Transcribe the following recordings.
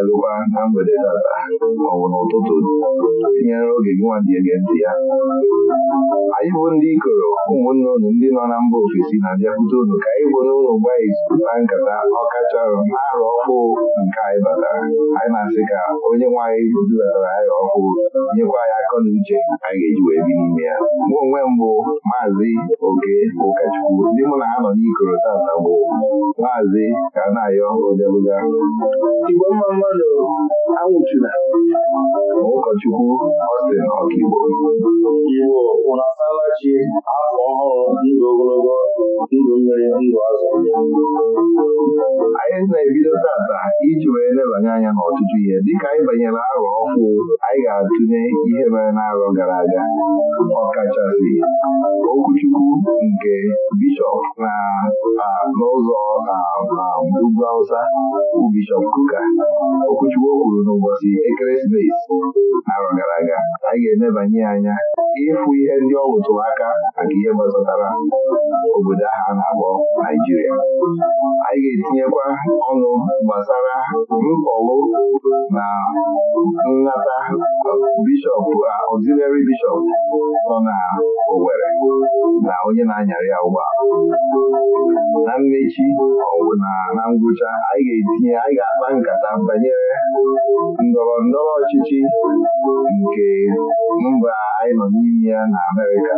adalụkwa na mgbede n'ala ma ọ bụ n'ụtụtụ tinyere oge gị nwa dị ege ntị ya anyị bụ ndị ikoro ụmụnne unu ndị nọ na mba ofesi na-abịakwute unu ka anyị bụ n'ụlọ mgbe anyị na nkata ọkacharọ na-arụ ọkụ nke anyị batara anyị na-asị ka onye nwaanyị dubatara anyị ọkụ nyekwa anyị akọ na uche anyị ga-eji wee bi n'ime ya mụ onwe mbụ maazị oke ụkọchukwu ndị mụ na ha nọ n'ikoro tata bụ maazị ka na-ayọ odebuga Igbo mma mmadụ anwụchula ụkọchukwu Austin Ọkigbo Igbo ụnụ asalachi afọ ọhụrụ ndụ ogologo ndụ nwere ndụ azụ anyị na-ebido tata iji wee lebanye anya n'ọtụtụ ihe dịka anyị banyere arọ ọhụụ anyị ga-atụnye ihe mere n'arọ gara aga ọkachasị okwuchukwu nke bishọp na n'ụzọ ugwu Hausa bụ bishọp Kuka okwuchukwu okwuru n'ụbọchị ekeresimesi arọ gara aga anyị ga-elebanye anya ịfụ ihe ndị ọ rụtụrụ aka maka ihe gbasatara obodo ahụ a na-akpọ Naijiria anyị ga-etinyekwa ọnụ gbasara mkpọwu na nnata bishọp ọzilari bishọp nọ na Owerri na onye na-anyarị ya ụgbọala na mmechi na ngwụcha anyị ga-etinye anyị ga-akpa nkata banyere ndọrọ ndọrọ ọchịchị nke mba anyị nọ n'ime ya na Amerịka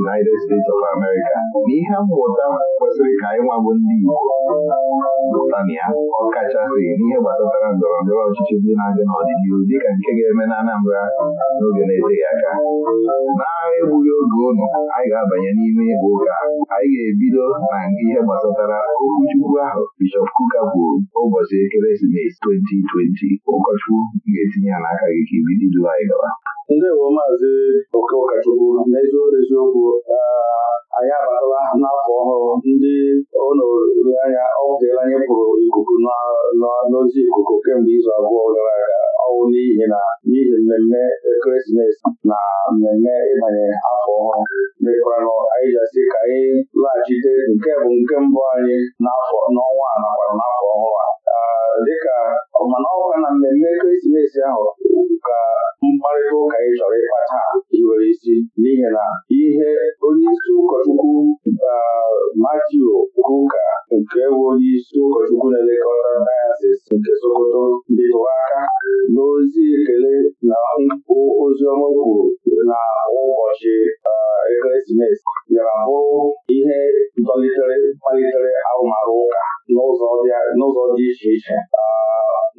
United States of America n'ihi ihe mmụta kwesịrị ka anyị nwa bụ ndị Igbo pụta na ya ọkachasị n'ihe gbasatara ndọrọ ndọrọ ọchịchị ndị na-adị n'ọdịnihu dịka nke ga-eme na Anambra n'oge na-eteghị aka na-egbughị oge ụnụ anyị ga-abanye n'ime ịgba ụka anyị ga-ebido na ihe gbasatara okwuchukwu ahụ Bishọp Kuka kwuru ụbọchị ekeresimesi 2020 ụkọchukwu ga-etinye ya n'aka gị ka ibido duo anyị ndewo maazị oke ụkọchukwu n'eziokwu eziokwu ah, anyị abatala n'afọ ọhụrụ ndị onoanya ọ bụtela anyị pụrụ ikuku n'ozi ikuku kemgbe izu abụọ gara aga ọnwụ n'ihi na n'ihi mmemme ekeresimesi na mmemme ịbanye afọ ọhụrụ mekwanụ anyị jasị ka anyị laghachite nke bụ nke mbụ anyị n'afọ n'ọnwa a nakwa n'afọ ọhụrụ a ah, dịka mana ọkwa na mmemme ekeresimesi ahụ ka mkparịta ụka ị chọrọ ịkpa taa iwere isi n'ihi na ihe onye isi ụkọchukwu Matiu Kuka nke bụ onye isi ụkọchukwu na-elekọta dayasis nke Sokoto bịtụrụ aka n'ozi ekele na ozi ọma kwuru na ụbọchị ekeresimesi bịara bụrụ ihe dọlitere malitere arụmarụ ụka n'ụzọ dị iche iche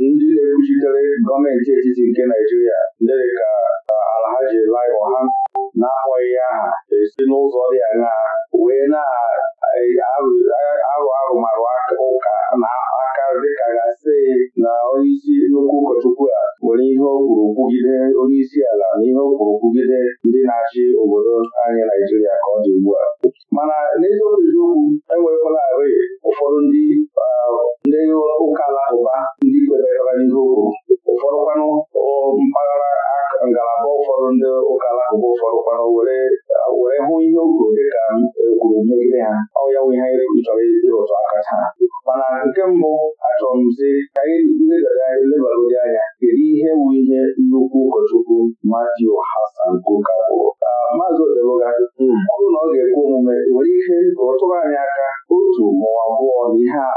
ndị na-ekwuchitere gọọmenti etiti nke Naijiria ndị ka Alhaji Lai ha na-akpọghị ya aha esi n'ụzọ dị aṅaa wee na-arụ arụmarụ ụka na aka ka ga-asị na onyeisi nnukwu ụkọchukwu a nwere ihe o kwuru kwugide onyeisi ala na ihe o kwugide ndị na-achị obodo anyị Naijiria ka ọ dị ugbu a mana n'eziokwu eziokwu enwekwala arị ụfọdụ ndị ndị ụka alakụba ndị kwebatara n'ihe o kwuru ụfọdụ kwanụ mpaghara ngalaba ụfọdụ ndị ụka alakụba ụfọdụ kwanụ were hụ ihe o dị ka ekwuru megide ha ọ ya nwe ihe anyị chọrọ ịdị ụtọ mana nke mbụ achọrọ m sị ka anyị legara anyị lebagodi anya kedu ihe bụ ihe nnukwu ụkọchukwu Matiu Hasan Kuka bụ maazị Odeluga ọ bụrụ na ọ ga-ekwe omume nwere ike ka ọ anyị aka otu ma abụọ na ihe a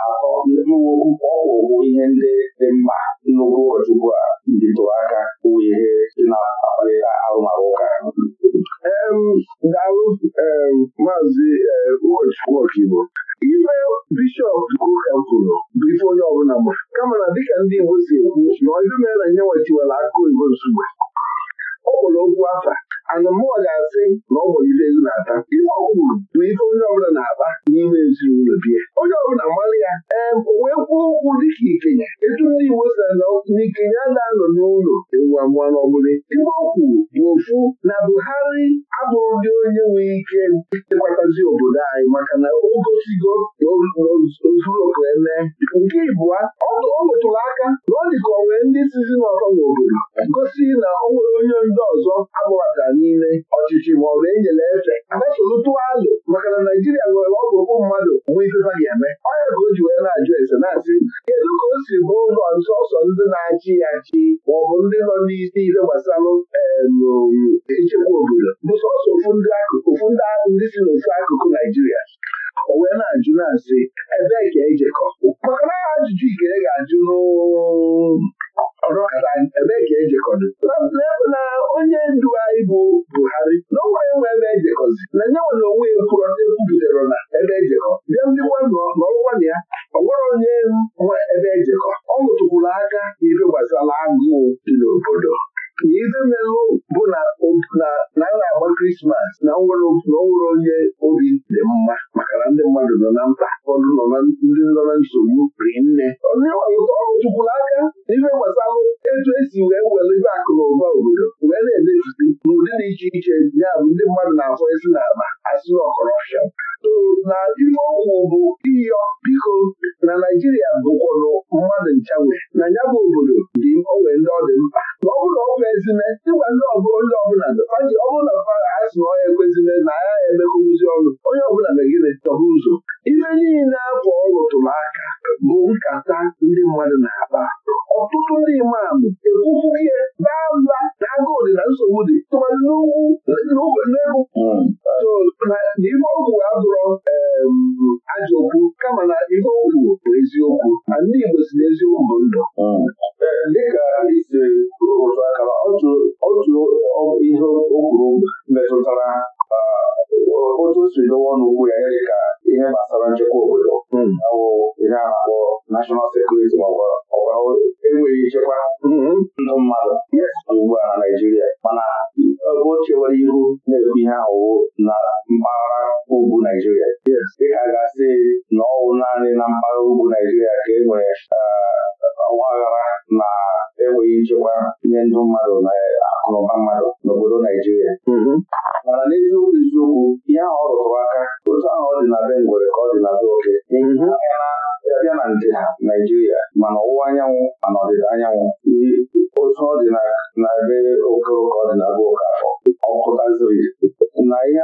ọrụ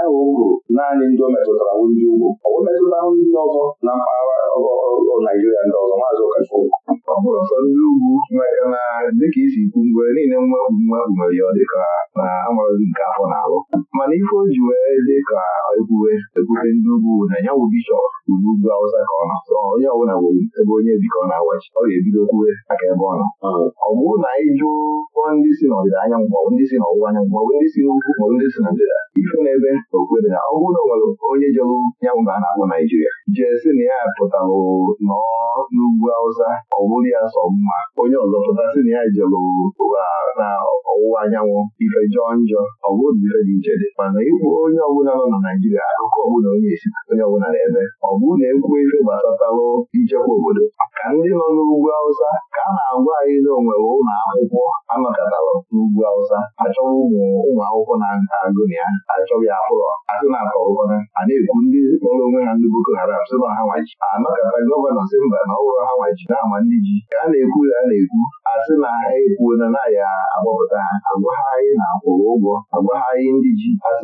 ahụ o kwuru naanị ndị o metụtara bụ ndị ugwu ọ bụ metụta ndị ọzọ na mpaghara Naijiria ndị ọzọ maazị Okafọ ọ bụrụ sọ ndị ugwu na dịka isi kwu, mgbe niile mwepụ mwepụ nwere ya dịka na amara nke afọ na-alụ mana ife o ji wee dịka ekwube ekwube ndị ugwu na ya bụ bishọp ugbu ugwu awụsa ka ọ na onye ọbụla nwere ebe onye bi ka ọ na-awachi ọ ga-ebido kwuwe aka ebe ọ nọ ọ bụrụ na anyị jụọ ndị si na ọdịda anyanwụ maọbụ ndị si na ọwụwa anyanwụ maọbụ ndị si n'ugwu maọbụ ndị si na ndịda ife n'ebe okwe na ọ bụrụ na o nwere onye jọrọ nyanwụ na a na-akpọ Naijiria jesi na ya pụtarụ nọọ n'ugwu Awụsa ọ bụrụ ya sọ mma onye ọzọ pụtasị na ya jelụ na ọwụwa anyanwụ ife jọọ njọ ọ bụrụ ife dị iche dị mana ịkwụ onye ọbụla nọ na Naịjirịa akụkọ ọbụla onye esi onye ọbụla na-eme ọ bụrụ na ekwu ife gbasatalụ ichekwa obodo ka ndị nọ n'ugwu awụsa ka a na-agwa anyị na onwere ụlọ akwụkwọ anọkọtara n'ugwu awụsa achọwa ụmụ akwụkwọ na agụnị ya achọghị afụrọ asị na atọụkọna a na-ekwu ndị kpọrọ onwe ha ndị Boko Haram sị na ha nwaji anọkọta gọvanọ si mba na ọhụrụ ha nwaji na ama ndị ji ka a na-ekwu ya na-ekwu asị na ha na na agbapụta agwa anyị na-akwụrụ ụgwọ agwa anyị ndị ji asị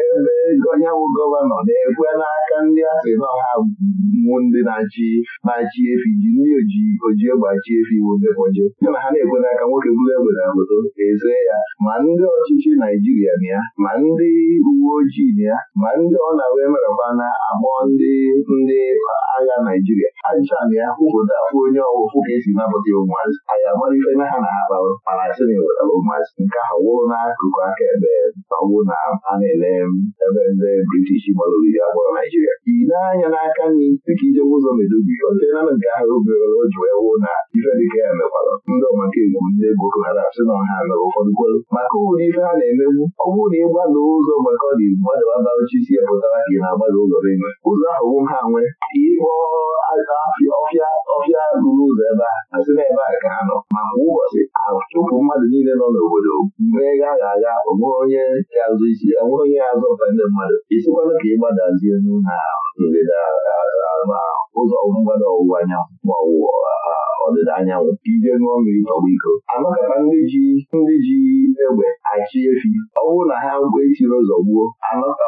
ebe gọvanọ na na-ekwe n'aka ndị asị na ọha wụ ndị na-achị na-achị efi ji ndị oji egbe achị efi ndị na ha na-ekwe n'aka nwoke bụrụ egbe na obodo eze ya ma ndị ọchịchị Naijiria na ya ma ndị uwe ojii na ya ma ndị ọ na-wee meraba na agbọ ndị ndị agha Naijiria ajụcha na ya obodo afụ onye ọwụfụ ka esi napụta ụmụazị anyị na ha na ha e ụmụazị nke ha wụrụ n'akụkụ mmiri a gbara Naijiria i anya n'aka nri dịka ijewe ụzọ medobi na nke ahụ obere o ji wee wụ na ife dịka ya mekwara ndị ọmaka egwu ndị Boko Haram si na ọha mere ụfọdụ kwelu maka ụlọ ife ha na-emegbu ọ bụrụ na ị gbada ụzọ maka ọ dị gbadaba barụchi si ya pụtara ka ị na-agbada ụzọ n'ime ụzọ ahụ wụ ha nwee ịkpọ aja ọfịa ọfịa ruru ụzọ ebe a asị na ebe a ka ha nọ ma kwa ụbọchị ụmụ mmadụ niile nọ n'obodo mee ya agha agha onwere onye azụ isi enwere onye azụ ụka ndị mmadụ isikwana ka ịgbadazie na ndịda ma ụzọ mgbada ọwụwa anyanwụ ma ọ ọdịda anyanwụ ije ṅụọ mmiri tọgbọ iko anọkọta ndị ji ndị ji egbe achị efi ọ bụrụ na ha mgbe etiri ụzọ gbuo anọkọ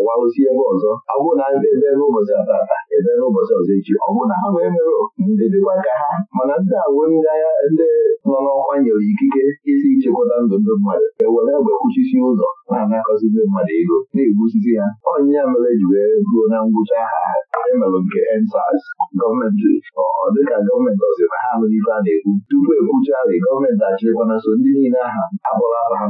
awaụzi ebe ọzọ ọ bụrụ na ebe ụbọchị atata ebe ụbọchị ọzọ echi ọ bụrụ na ha wee eme ndị dịkwa ka ha mana ndị awụ ndị agha ndị nọ n'ọkwa nyere ikike isi ichekwata ndụ ndị mmadụ ewere egbe kwuchisi ụzọ na-anakọzi ndị mmadụ ego na ha ya mere ji wee ruo na ngwụcha ha emelụ nke ensas gọọmenti ọ dịka gọọmenti ọzọ na ha nwere ife a na-ekwu tupu e ndị niile aha akpọrọ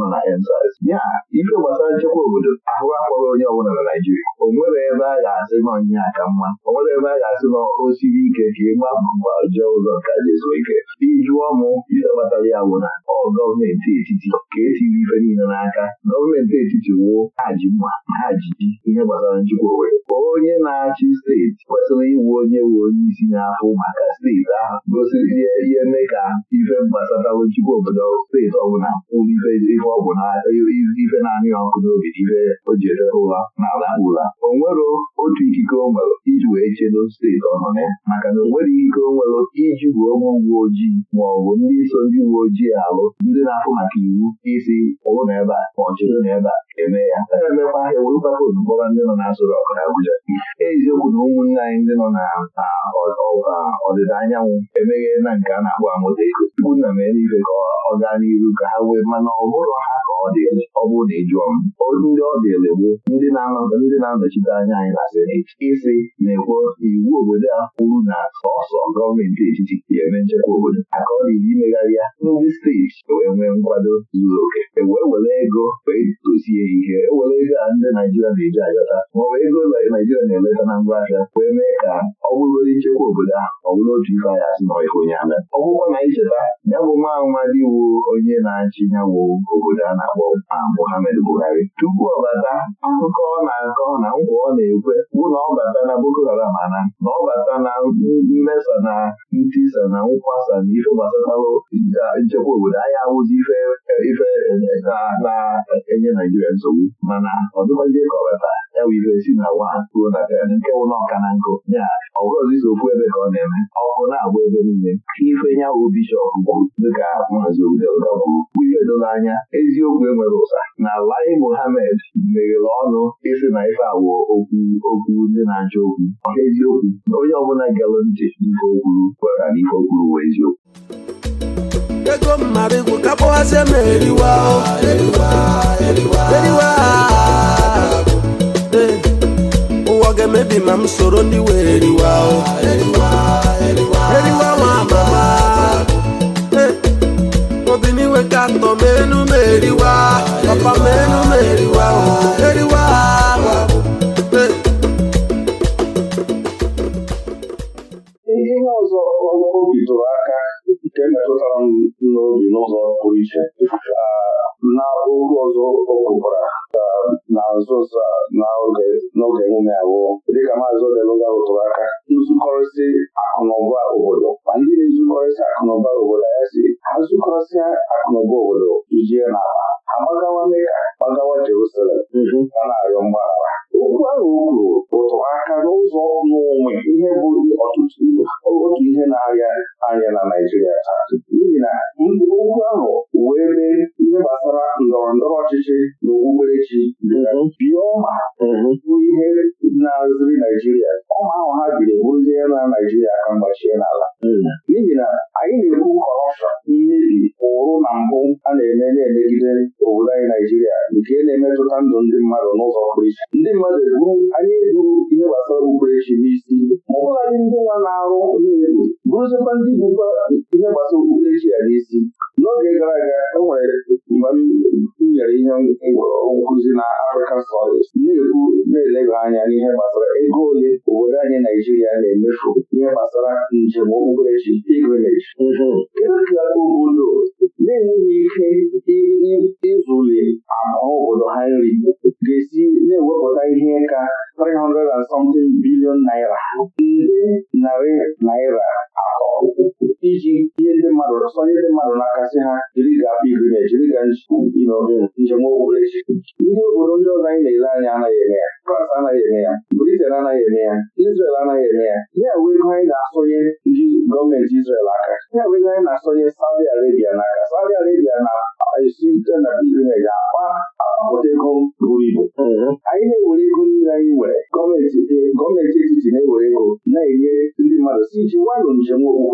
gbasara nchekwa obodo ahụ akpọrọ onye ọbụla na Naijiria o ebe a ga-asị nọ nya aka mma o nwere ebe a ga-asị nọ o siri ike ka ịgba mba ọjọọ ụzọ ka e jezuo ike ijụọ m ihe kpatara ya bụ na ọ gọọmenti etiti ka etiri ife niile n'aka gọọmenti etiti wuo ha ji mma ha ji ji ihe gbasara njikwa Owerri onye na-achị steeti kwesịrị ịwụ onye wu onye isi afụ maka steeti ahụ gosiri ihe mee ka ife gbasara njikwa obodo steeti ọbụla kwuru ife ọ bụ na ife na-anị ọkụ n'obi ife o ji edebe ụra na ala gwụla o nwero otu ikike o nwere iji wee chedo steeti ọ ya maka na o ikike o nwere iji bụ onye uwe ojii ma ọ bụ ndị so ndị uwe ojii alụ ndị na-afụ maka iwu isi ụlụ na ebe a ma ọ chedo na ebe a eme ya aga na-emekwa ahịa were papụl mkpọrọ ndị nọ n'azụrụ ọkụ na Abuja eziokwu na ụmụnne anyị ndị nọ na ọdịda anyanwụ emeghe na nke a na-akpọ amụta ego tupu nna m eluigwe ka ọ gaa n'iru ka ha wee mana ọ bụrụ ha ka ọ dị ọ bụrụ na ịjụọ m olu ndị ọ dị elebo ndị na-anọchite anya anyị na seneti isi na-ekwo iwu obodo a kwuru na sọsọ gọọmenti etiti ga-eme nchekwa obodo aka ọ dị imegharị ya ndị steeti wee nwee nkwado zuru oke ewee were ego wee dozie dị ike ewere ego a ndị Naijiria na-eji ayọta ma ọ bụ ego ụlọ Naijiria na-eleta na ngwa ahịa wee mee ka ọ bụrụ nchekwa obodo ahụ ọ bụrụ otu ife anyị asị na ife onye ama ọ bụkwa na icheta ya bụ nwa nwa dịwo onye na-achị ya obodo a na-akpọ Muhammad Buhari tupu ọ bata akụkọ ọ na-akọ na nkwa ọ na-ekwe bụ na ọ bata na Boko Haram ana na ọ bata na mmesa na ntisa na nkwasa na ife gbasatara nchekwa obodo anyị awụzi ife eh, eh, na-enye Naijiria nsogbu mana ọ dịkwazie ka ọ weta ya bụ ibe si na nwa ha ruo na nke wụ na ọka na nkụ ya ọ bụrụzi so okwu ebe ka ọ na-eme ọkụ na-agba ebe niile ife ya bụ bishọp kwuru dịka maazị obodo kwuru ife doro anya eziokwu enwere ụsa na Lai Mohammed meghere ọnụ ịsị na ife awụ okwu okwu ndị na-achọ okwu eziokwu onye ọbụla gere ntị ife okwuru kwere na ife okwuru wee eziokwu ego mmara igwu ka kpọghazie m eriwa eriwa ụwa ga-emebi ma m soro ndị wee eriwa eriwa nwa mama obiniwe ka atọ m enu m eriwa papa m enu m eriwa eriwa ihe ọzọ o bidoro nke m m n'obi n'ụzọ pụrụ iche na okwu ọzọ o kwukwara na nso nso n'oge emume abụọ dịka maazị Odeluga rụtụrụ aka nzukọrịsị akụnụba obodo ma ndị na-ezukọrịsị akụnụba obodo ya si ha zukọrịsịa akụnụba obodo tujie n'ala ha gbagawa Meka gbagawa Jerusalem mm-hmm. a na-arịọ mgbaghara okwu ahụ kwuru ụtụ aka n'ụzọ n'onwe ihe bụ ọtụtụ otu ihe na-arịa arịa na Naijiria taa n'ihi na okwu ahụ wee mee ihe gbasara ndọrọ ndọrọ ọchịchị na okpukperechi mhm. bịa ma, mhm. bụ ihe na-azụri Naijiria ọma ahụ ha biri bụrụzie ya na Naijiria ka mgbachie n'ala mhm. n'ihi na anyị na-ekwu kọrọpshọn mmebi ụrụ na mbụ a na-eme na-emegide obodo anyị Naijiria nke na-emetụta ndụ ndị mmadụ n'ụzọ pụrụ iche ndị mmadụ eburu anyị eburu ihe gbasara okpukperechi n'isi ma ọ bụladị ndị nwa na-arụ onye egwu bụrụzikwa ndị bụkwa ihe gbasara okpukperechi ya n'isi n'oge gara aga e nwere mgbe m nyere ihe nkụzi na Africa Studies na-ekwu na-eleba anya n'ihe gbasara ego ole obodo anyị Naijiria na-emefu ihe gbasara njem okpukperechi pilgrimage obodo na-enweghị ike ịzụli ahụ obodo ha nri ga-esi na-ewepụta ihe ka 300 bilion naira nde narị naira atọ iji ihe ndị mmadụ sọnye ndị mmadụ n'aka sị ha jiri ga pilgrimage jiri ga njem okpukperechi ndị obodo ndị ọzọ anyị na-ele anya anaghị eme ya France anaghị eme ya Britain anaghị eme ya Israel anaghị eme ya ya wee ego anyị na-asọnye ndị gọọmenti aka ya wee anyị na-asọnye Saudi Arabia n'aka Saudi Arabia na-esi na uh, akpa ego buru ibu mhm. anyị na-ewere ego iji nwanụ njem ụwa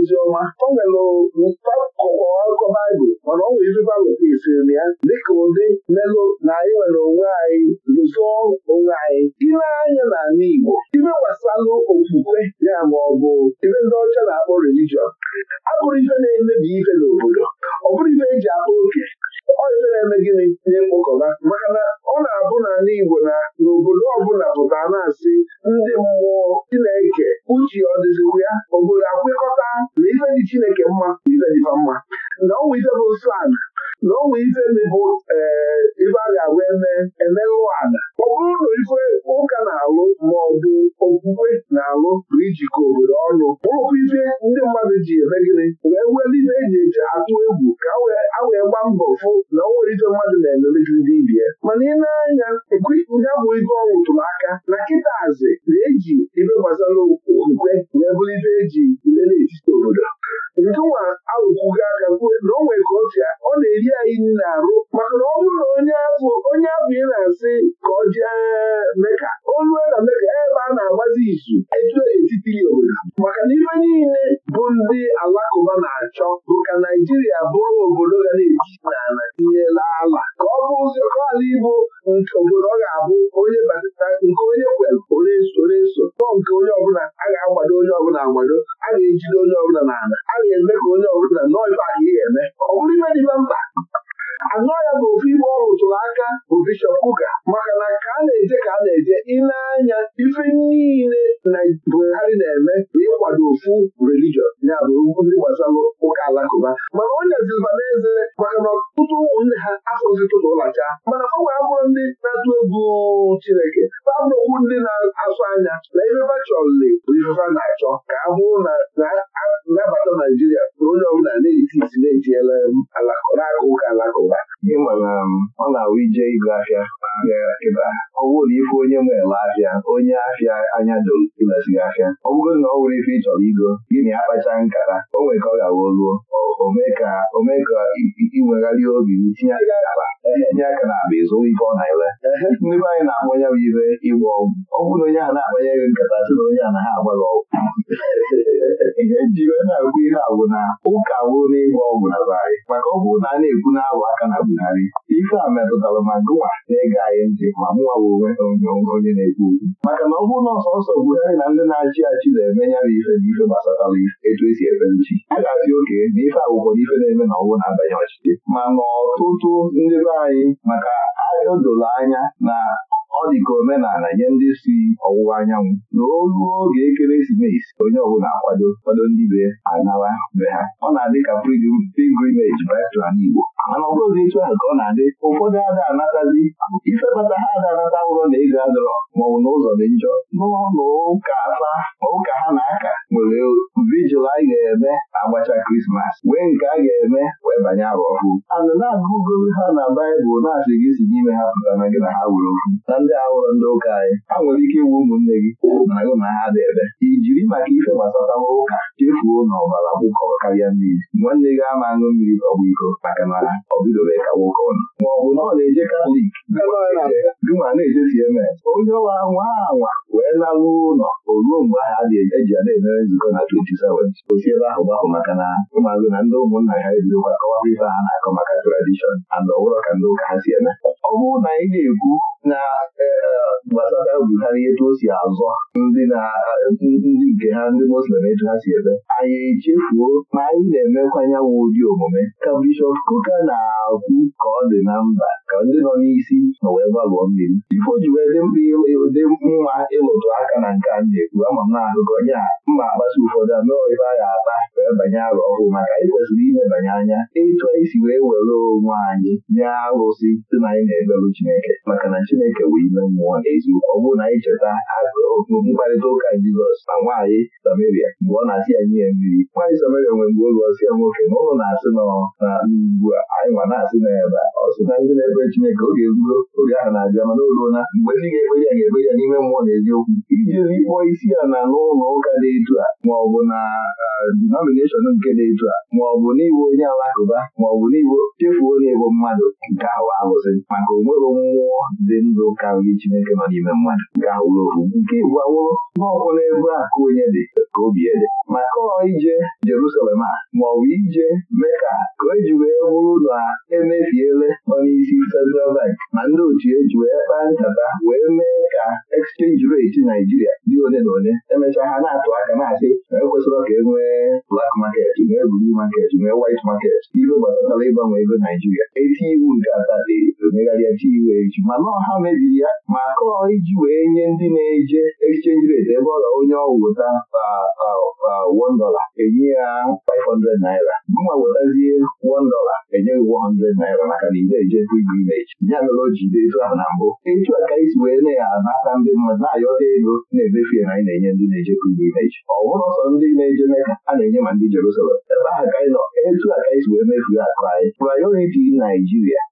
ozi ọma o nwere akụkọ baịbụl mana ọ nwere ezigbo akụkọ isiri na ya dịka ụdị melụ na anyị nwere onwe anyị lụzụọ onwe anyị ile anya n'ala Igbo ibe gbasalụ okwukwe ya ma ọ bụ ibe ndị ọcha na-akpọ relijiọn abụrụ ife na-emebi ife n'obodo ọ bụrụ ife eji akpọ oke ọjị na-eme gịnị na-ekpokọba maka na ọ na-abụ n'ala Igbo na obodo ọbụla pụta na-asị ndị mmụọ Chineke uche ọ ya obodo akwekọta na ife dị Chineke mma na ife dịfa mma na ọ ife bụ na onwe ife bụ eh, ife a ga-agwa eme ụlọ ala ọ bụrụ na ife ụka na-alụ ma ọ bụ okwukwe na-alụ bụ ijikọ obodo ọnụ bụrụkwa ife ndị mmadụ ji eme gịnị wee were ife eji eji atụ egwu ka a wee gbaa mbọ fụ na o nwere ife mmadụ na-emelezi ndị ibie mana ị na-anya ya bụ ife ọ rụtụrụ aka na kịtazi na-eji ife gbasara okwukwe wee bụrụ ife eji na etiti obodo njụnwa arụkwughị aka kwuo na o nwere ka o ọ na-eri anyị niile arụ maka na ọ bụrụ na onye afọ onye afọ ị na-asị ka ọ jee meka olue na meka ebe a na-agbazi izu etiti ya obodo maka na ife niile bụ ndị alakụba na-achọ bụ ka Naijiria bụrụ obodo ga na-eji n'ala tinyela ala ka ọ bụ ụzọ ka ala Igbo nke obodo ọ ga-abụ onye batata nke onye kwere onye so onye nke onye ọbụla a ga-agbado onye ọbụla agbado a ga-ejide onye ọbụla n'ala a ga-eme ka onye ọbụla nọọ ibe a ga-eme ọ bụrụ ime dịba mba anọ ya bụ ibe igbo tụrụ aka bụ bishọp kuka maka na ka a na-eje ka a na-eje ile anya ife niile na Buhari na-eme bụ ịkwado ofu religion ya bụ ndị gbasara ụka alakụba mana onye zilba n'eze maka na ọtụtụ ụmụnne ha afọzi tụtụ ụlacha mana ọ fọwa abụrụ ndị na-atụ egwu Chineke fabụ okwu ndị na-asụ anya na ifefa chọrọli bụ ifefa na-achọ ka a hụrụ na nabata Naijiria na onye ọbụla na-eti Wesley ejiela um, na ụka alakụba ịma na ọ na-awụ ije ịgụ ahịa kịta ọ bụrụ ife onye nwere ahịa onye ahịa anya dolezigị ahịa ọ bụrụ na ọ nwere ife ị chọrọ igo gịnị akpacha nkata o nwere ka ọ gawa oluo ka inwegharị obi tinye aka na akpa ịzụ ife ọ na-ele ndị anyị na-akpọ ibe ịgba ọgwụ ọ na onye a na-akpanye nkata onye ahụ na ha ọgwụ ihe na ihe na ọgwụ anyị maka ọ bụrụ na a na-ekwu na-abụ aka na Buhari ife a metụtara ma gụnwa na-ege anyị ntị ma mụwa bụ onwe onye na-ekwu okwu maka na ọ bụrụ na ọsọsọ Buhari na ndị na-achị achị na-eme ya bụ ife na ife gbasatara etu esi ebe nchi a ga-asị oke na ife akwụkwọ na ife na-eme na ọgwụ na-abanye ọchịchị ma n'ọtụtụ ndị be anyị maka o doro anya na ọ dị ka omenala nye ndị si ọwụwa anyanwụ na olu oge ekeresimesi onye ọbụla akwado kwado ndị be anawa be ha ọ na-adị ka pilgrimage baịtra n'Igbo mana ọ bụghị etu ahụ ka ọ na-adị ụfọdụ ada anatazi ife kpata ha ada anata ụrọ na ego adọrọ maọbụ na ụzọ dị njọ n'ụlọ ụka ụka ha na-aka nwere vijil a ga-eme agbacha krismas wee nke a ga-eme wee banye agba ọfụ. ana na-agụgoro ha na baịbụl na-asị gị si n'ime ha pụta na gị na ha were okwu na ndị ahụrụ ndị ụka anyị ha nwere ike ịwụ ụmụnne gị na gị na ha debe jiri maka ife gbasatawa ụka chefuo na ọbara kwụkọrọ karịa mmiri nwanne gị ama aṅụ mmiri ọgbụ iko maka na ọ bidobeghị ka nwoke ọnụ ma ọ bụ na ọ na-eje katọlik gị ma na-eje cms onye ọwa nwa anwa wee la ụlọ o ruo mgbe ahụ a ga-eji ya na-emere nzukọ na 27 osi ebe ahụ gbahụ maka na ụmụazụ na ndị ụmụnna ha ebidokwa kọwara ife ha na-akọ maka tradishọn and ọbụrụ ka ndị ụka ha si eme ọ bụrụ na anyị na-ekwu na eh, gbasara gbutara etu o si azọ ndị nke ha ndị Muslim etu ha si ebe anyị echefuo ma anyị na-emekwa anyanwụ ụdị omume ka Bishọp Kuka na-akwụ ka ọ dị na mba ka ndị nọ n'isi na wee gbalụọ mmiri ifo ji wee dị mkpa mma ịlụtụ aka na nke na-ekwu ama m na mma ụfọdụ ame a ga-akpa wee banye arụ ọhụụ maka anyị kwesịrị anya etu anyị si wee were onwe anyị nye arụsị dị na anyị na-ebelụ Chineke maka na Chineke wee ime mmụọ e eziokwu ọ bụrụ na anyị cheta mkparịta ụka Jizọs na nwaanyị Samaria mgbe ọ na-asị ya nye mmiri nwaanyị Samaria nwere mgbe oge ọsị ya nwoke na ụlọ na-asị nọ na ugbu a anyị nwa na-asị na ya ebe ọ sị na ndị na-ekpere Chineke oge eruo oge ahụ na-abịa mana olu ruola mgbe ndị ga-ekpere ya ga-ekpere ya n'ime mmụọ na eziokwu iji kpọọ isi ya na n'ụlọ ụka dị etu a ma ọ bụ na denomineshọn nke dị etu a ma ọ bụ n'igwe onye alakụba ma ọ bụ n'igbo chefuo onye mmadụ nke ahụ alụsị maka onwere mmụọ dị ndụ karịrị Chineke nọ n'ime mmadụ ga-awụrụ ofu nke igwe awụrụ n'ọkwụla ebe a ka onye dị ka obi ede maka ọ ije Jerusalem a ma ọ bụ ije mee ka o ji wee bụrụ na emefiele nọ n'isi Central Bank ma ndị otu eji wee kpaa nkata wee mee ka exchange rate Naijiria dị ole na ole emechaa ha na-atụ aka na-asị na ekwesịrị ka e nwee black market nwee blue market nwee white market ibe gbasatara ịgbanwe ego Naijiria eti iwu nke ata dị omegharịa chi iwu eji mana ọha mebiri ya ma kọọ iji wee nye ndị na-eje exchange rate ebe ọ ga onye ọ wụta $1 enye ya 500 naira mma wetazie $1 enye gị 100 naira maka na ide eje ibu imeji ya mere o dị etu ahụ na mbụ etu a ka isi wee na-anata ndị mmadụ na-ayọta ego na-emefu anyị na-enye ndị na-eje ibu imeji ọ bụrụ ọsọ ndị na-eje meka a na-enye ma ndị Jerusalem ebe ahụ ka anyị etu a ka Naijiria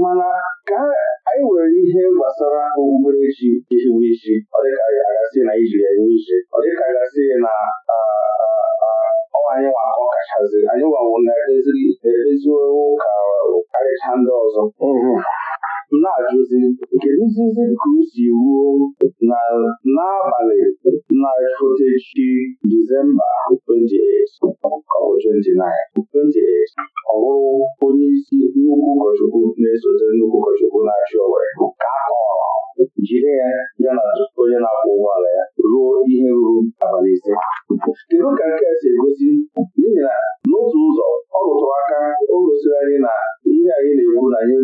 mana ka anyị nwere ihe gbasara okpukperechi ihiwe isi ọ dịka anyị agasị na ijiri enwe iche ọ dịka agasị na anyị nwa ọ kachazi anyị nwanwụ na-emeziwo ka karịcha ndị ọzọ mhm. na-ajụzi nkeduzizi ka o si ruo na n'abalị na fotechi Disemba 28 ọ bụ 29 ọ bụrụ onye isi nnukwu ụkọchukwu na-esote nnukwu ụkọchukwu na-achị Owerri ka a jide ya ya na onye na-akwụ ụgbọala ya ruo ihe ruru abalị ise kedu ka nke a si egosi n'ihi na n'otu ụzọ ọ rụtụrụ aka o gosiri anyị na ihe anyị na-ekwu na anyị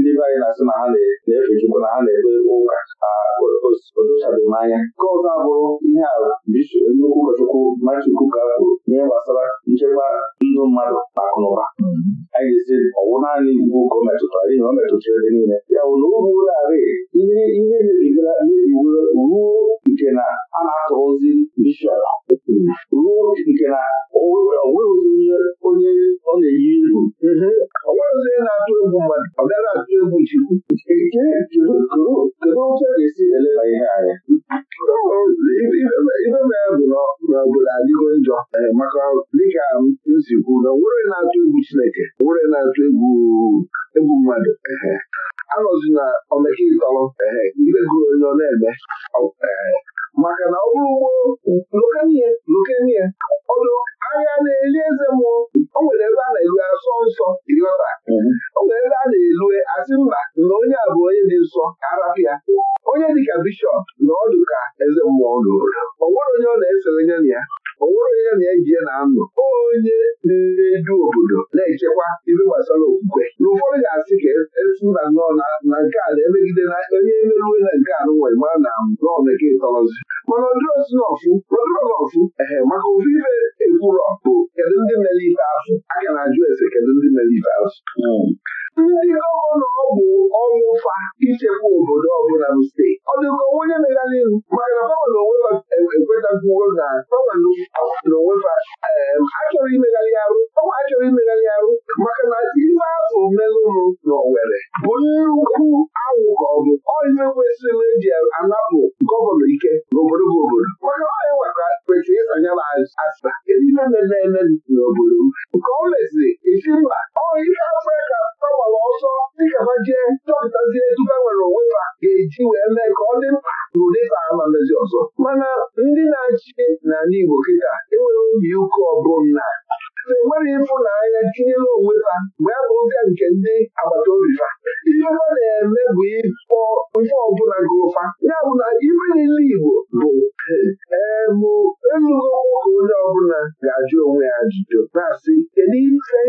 ndị be anyị na-asị na ha na-efe Chukwu na ha na-ekpe ekpe ụka odochabeghị m anya nke ọzọ abụrụ ihe a nnukwu ụkọchukwu Maachukwu ka kwuru ihe gbasara nchekwa ndụ mmadụ na ụba anyị ga-esi naanị iwu ọ metụtara ihe ọ metụtara ebe niile ya bụ na ihe ihe mebigara ruo nke na a na bishọp ruo nke na onweghịzi onye ọ na-eyi egwu ọ onye na-atụ egwu mmadụ ọ bịara atụ egwu chukwu kedu ga-esi eleba ihe anya ibe mee bụ na ọbụla adịgo njọ maka dịka m si kwu na nwere na-atụ egwu Chineke nwere na-atụ egwu egwu mmadụ anọzi na omekitọrọ ibe gụrụ onye ọ na-eme maka na ọ bụrụ ugbo lokenie lokenie ọnụ ahịa na-eli eze mmụọ mhm. o nwere ebe a na-elu asọ nsọ ịghọta o nwere ebe a na-elue asị mba na onye a bụ onye dị nsọ arapịa onye dịka bishọp na ọdụ ka eze mmụọ n'obodo ọ nwere onye ọ na-esere nye na ya ọ onye na eji na-anọ onye na-edu obodo na-echekwa ibe gbasara okwukwe na ụfọdụ ga-asị ka esi mba nnọọ na nke a na-emegide na onye emeruwe na nke a nụnwa ma na nọọmeke ịtọrọzi mana ọdịrozinọfụ ọdịrọnọfụ ehe maka ofu ife ekwurọ bụ kedu ndị mere ife ahụ a ga na-ajụ ese kedu ndị mere ife ahụ. Hmm. ndị ọrụ na ọ bụ ọnwụ fa ichekwa obodo ọbụla bụ steeti ọ dịka onwe onye mega n'ihu maka na gọvanọ onwe na gọvanọ na onwe fa achọrọ imegharị arụ ọnwa achọrọ imegharị arụ maka na ife ahụ melụrụ na Owerri bụ nnukwu anwụ ka ọ bụ ọihe kwesịrị eji anapụ gọvanọ ike n'obodo bụ obodo ọ kwesịrị ịsanye m asịba kedu ihe na-eme n'obodo m nke ọ meziri esi mba ọ ihe afrịka gbanwere ọsọ dịka ha jee chọpụtazie tupu nwere onwe ha ga-eji wee mee ka ọ dị mkpa n'ụdị ama mezi ọzọ mana ndị na-achị n'ala Igbo kịta enwere obi ụka ọbụla e nwere ịfụnanya tinyere onwe ha mgbe a bụzie nke ndị agbata obi ha ihe ha na-eme bụ ịkpọ ife ọbụla gị ụfa ya bụ na ife niile Igbo bụ ee bụ elugo nwoke onye ọbụla ga-ajụ onwe ya ajụjụ na-asị kedu ife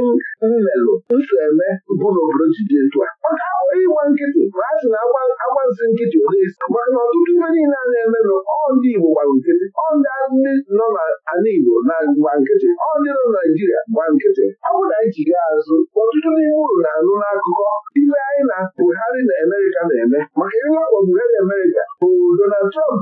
mmelụ nso eme bụ na obodo ji ntụ a maka abụghị ịgba nkịtị ma a sị na agbazi nkịtị odesi maka na ọtụtụ ife niile a na-emenụ ọ Igbo gbara nkịtị ọ ndị nọ n'ala Igbo na gba nkịtị ọ nọ Naijiria gba nkịtị ọ bụ na anyị jiga azụ ọtụtụ n'ime uru na-anụ n'akụkọ ime anyị na Buhari na Amerịka na-eme maka ịlakpọ Buhari Amerịka bụ Donald Trump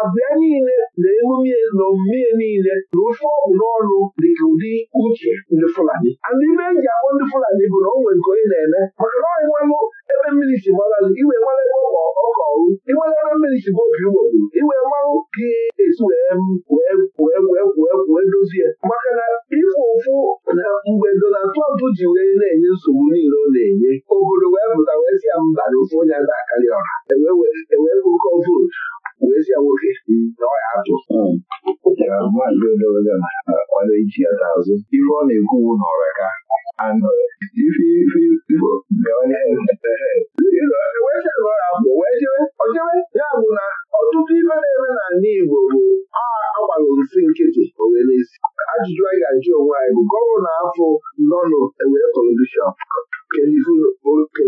abịa niile na emume na omume niile na ofe ọgwụ n'ọnụ dịka ụdị uche ndị Fulani andị ibe eji akpọ ndị Fulani bụ na o nwere nke onye na-eme maka na ọyị nwanụ ebe mmiri si gbalazụ iwe nwere ebe ọkọrụ ịnwere ebe mmiri si obi ugbogbo iwe mmanwụ gị esi wee wee dozie maka na ịfụ ụfụ na mgbe Donald ji wee na-enye nsogbu niile ọ na-enye obodo wee pụta wee si ya mba na ofe onye ada akarị ọra vootu bụ nwoke na ọ ya atụ ọ na iji ya azụ. ife ọ na-ekwuwu n'ọra ka anọrị ife ife ifo ya bụ na ọtụtụ ibe na-eme n'ala Igbo bụ agbalụ nsị nkịtị owenesi ajụjụ anyị ga-ajụ onwe anyị bụ gọvanọ na nọnụ ewee kọlọdishọn kedu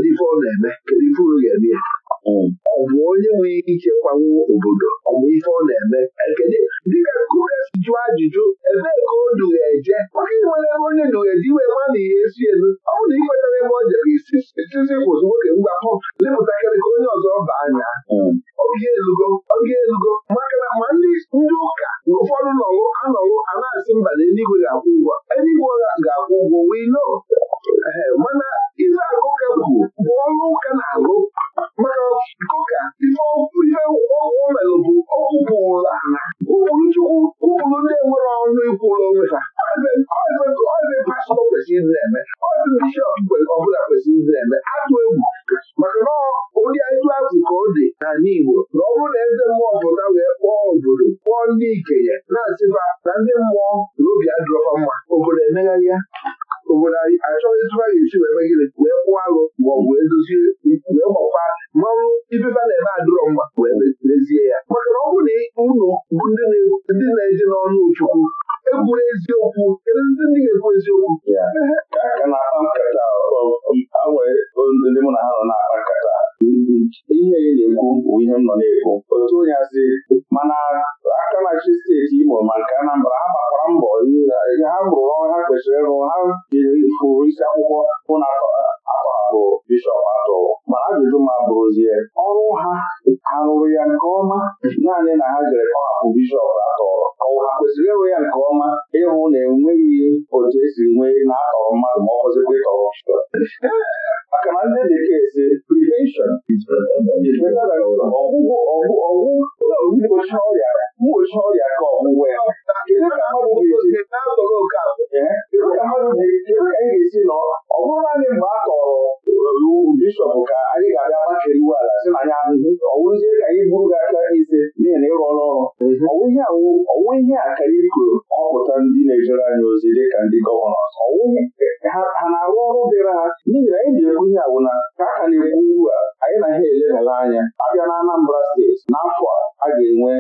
ife ọ na-eme kedu ife unu ga-eme Um, ọ bụ onye nwere ike kwanwuo obodo ọ bụ ife ọ na-eme ekene dịka Kukes jụọ ajụjụ ebee ka o duga eje nwoke nwere ebe onye duga eji wee ma na ihe esi elu ọ bụrụ na ikwetara ebe ọ jere isi itizi kwụsị nwoke mgbapụ lepụtakarị ka onye ọzọ baa anya oge hmm. elugo oge elugo maka na ma ndị ụka na ụfọdụ nọrụ anọrụ a na-asị mba na eluigwe ga-akwụ ụgwọ eluigwe ga-akwụ ụgwọ wee nọ mana ife akụkọ bụ ọrụ ụka na-alụ mana dịka ife ihe o bụ ụbụrụ ala ụbụrụ chukwu ụbụrụ ndị nwere ọnụ ikwụrụ onwe ha kwesịrị na-eme na-eme atụ egwu maka na ụdị ịtụ azụ ka ọ dị na Igbo na ọ bụrụ na eze mmụọ pụta wee kpọọ obodo kpọọ ndị ikenye na-asịba na ndị mmụọ na obi adịrọfa mma obodo emegharịa obodo anyị achọghị etu a ga wee megide wee kwụọ arụ ma ọ bụ wee dozie wee gbakwa mmanwụ ibeba na-eme adịrọ mma wee mezie ya maka na ọ bụrụ na unu bụ ndị na-eje n'ọnụ Chukwu ekwuru eziokwu kedu ndị ndị ga-ekwu eziokwu ihe ya na-ekwu bụ ihe m nọ na-ekwu otu onye asị mana aka na-achị steeti Imo ma nke Anambra ha gbakwara mbọ ha rụrụ ọrụ ha kwesịrị ịrụ ha jiri isi akwụkwọ hụ na akpọhapụ bishọp atọ mana ajụjụ ma bụrụzie ọrụ ha ha rụrụ ya nke ọma naanị na ha jere kọhapụ bishọp atọ ọ ha kwesịrị ịrụ ya nke ọma ịhụ na enweghị otu esi nwee na-atọrọ mmadụ ma ọ bụzikwa ịtọrọ maka na ndị bekee si prevention ọgwụ mgbochi ọrịa mgbochi ọrịa ka ọgwụgwọ ya kedu ka mmadụ ga-esi na ọ bụrụ naanị mgbe a tọrọ were iwu bishọp ka anyị ga-abịa makere iwu ala si na anyị ahụhụ ọwụzie ka anyị buru gị aka ise n'ihi na ịrụ ọrụ ọrụ mhm. ọnwụ ihe a ka anyị kwuru ọpụta ndị na-ejere anyị ozi dị ka ndị gọvanọ ha na-arụ ọrụ dịrị ha n'ihi na anyị na-ekwu ihe awụna ka a na-ekwu ugbu a anyị na ha elebara anya abịa na Anambra steeti n'afọ a ga-enwe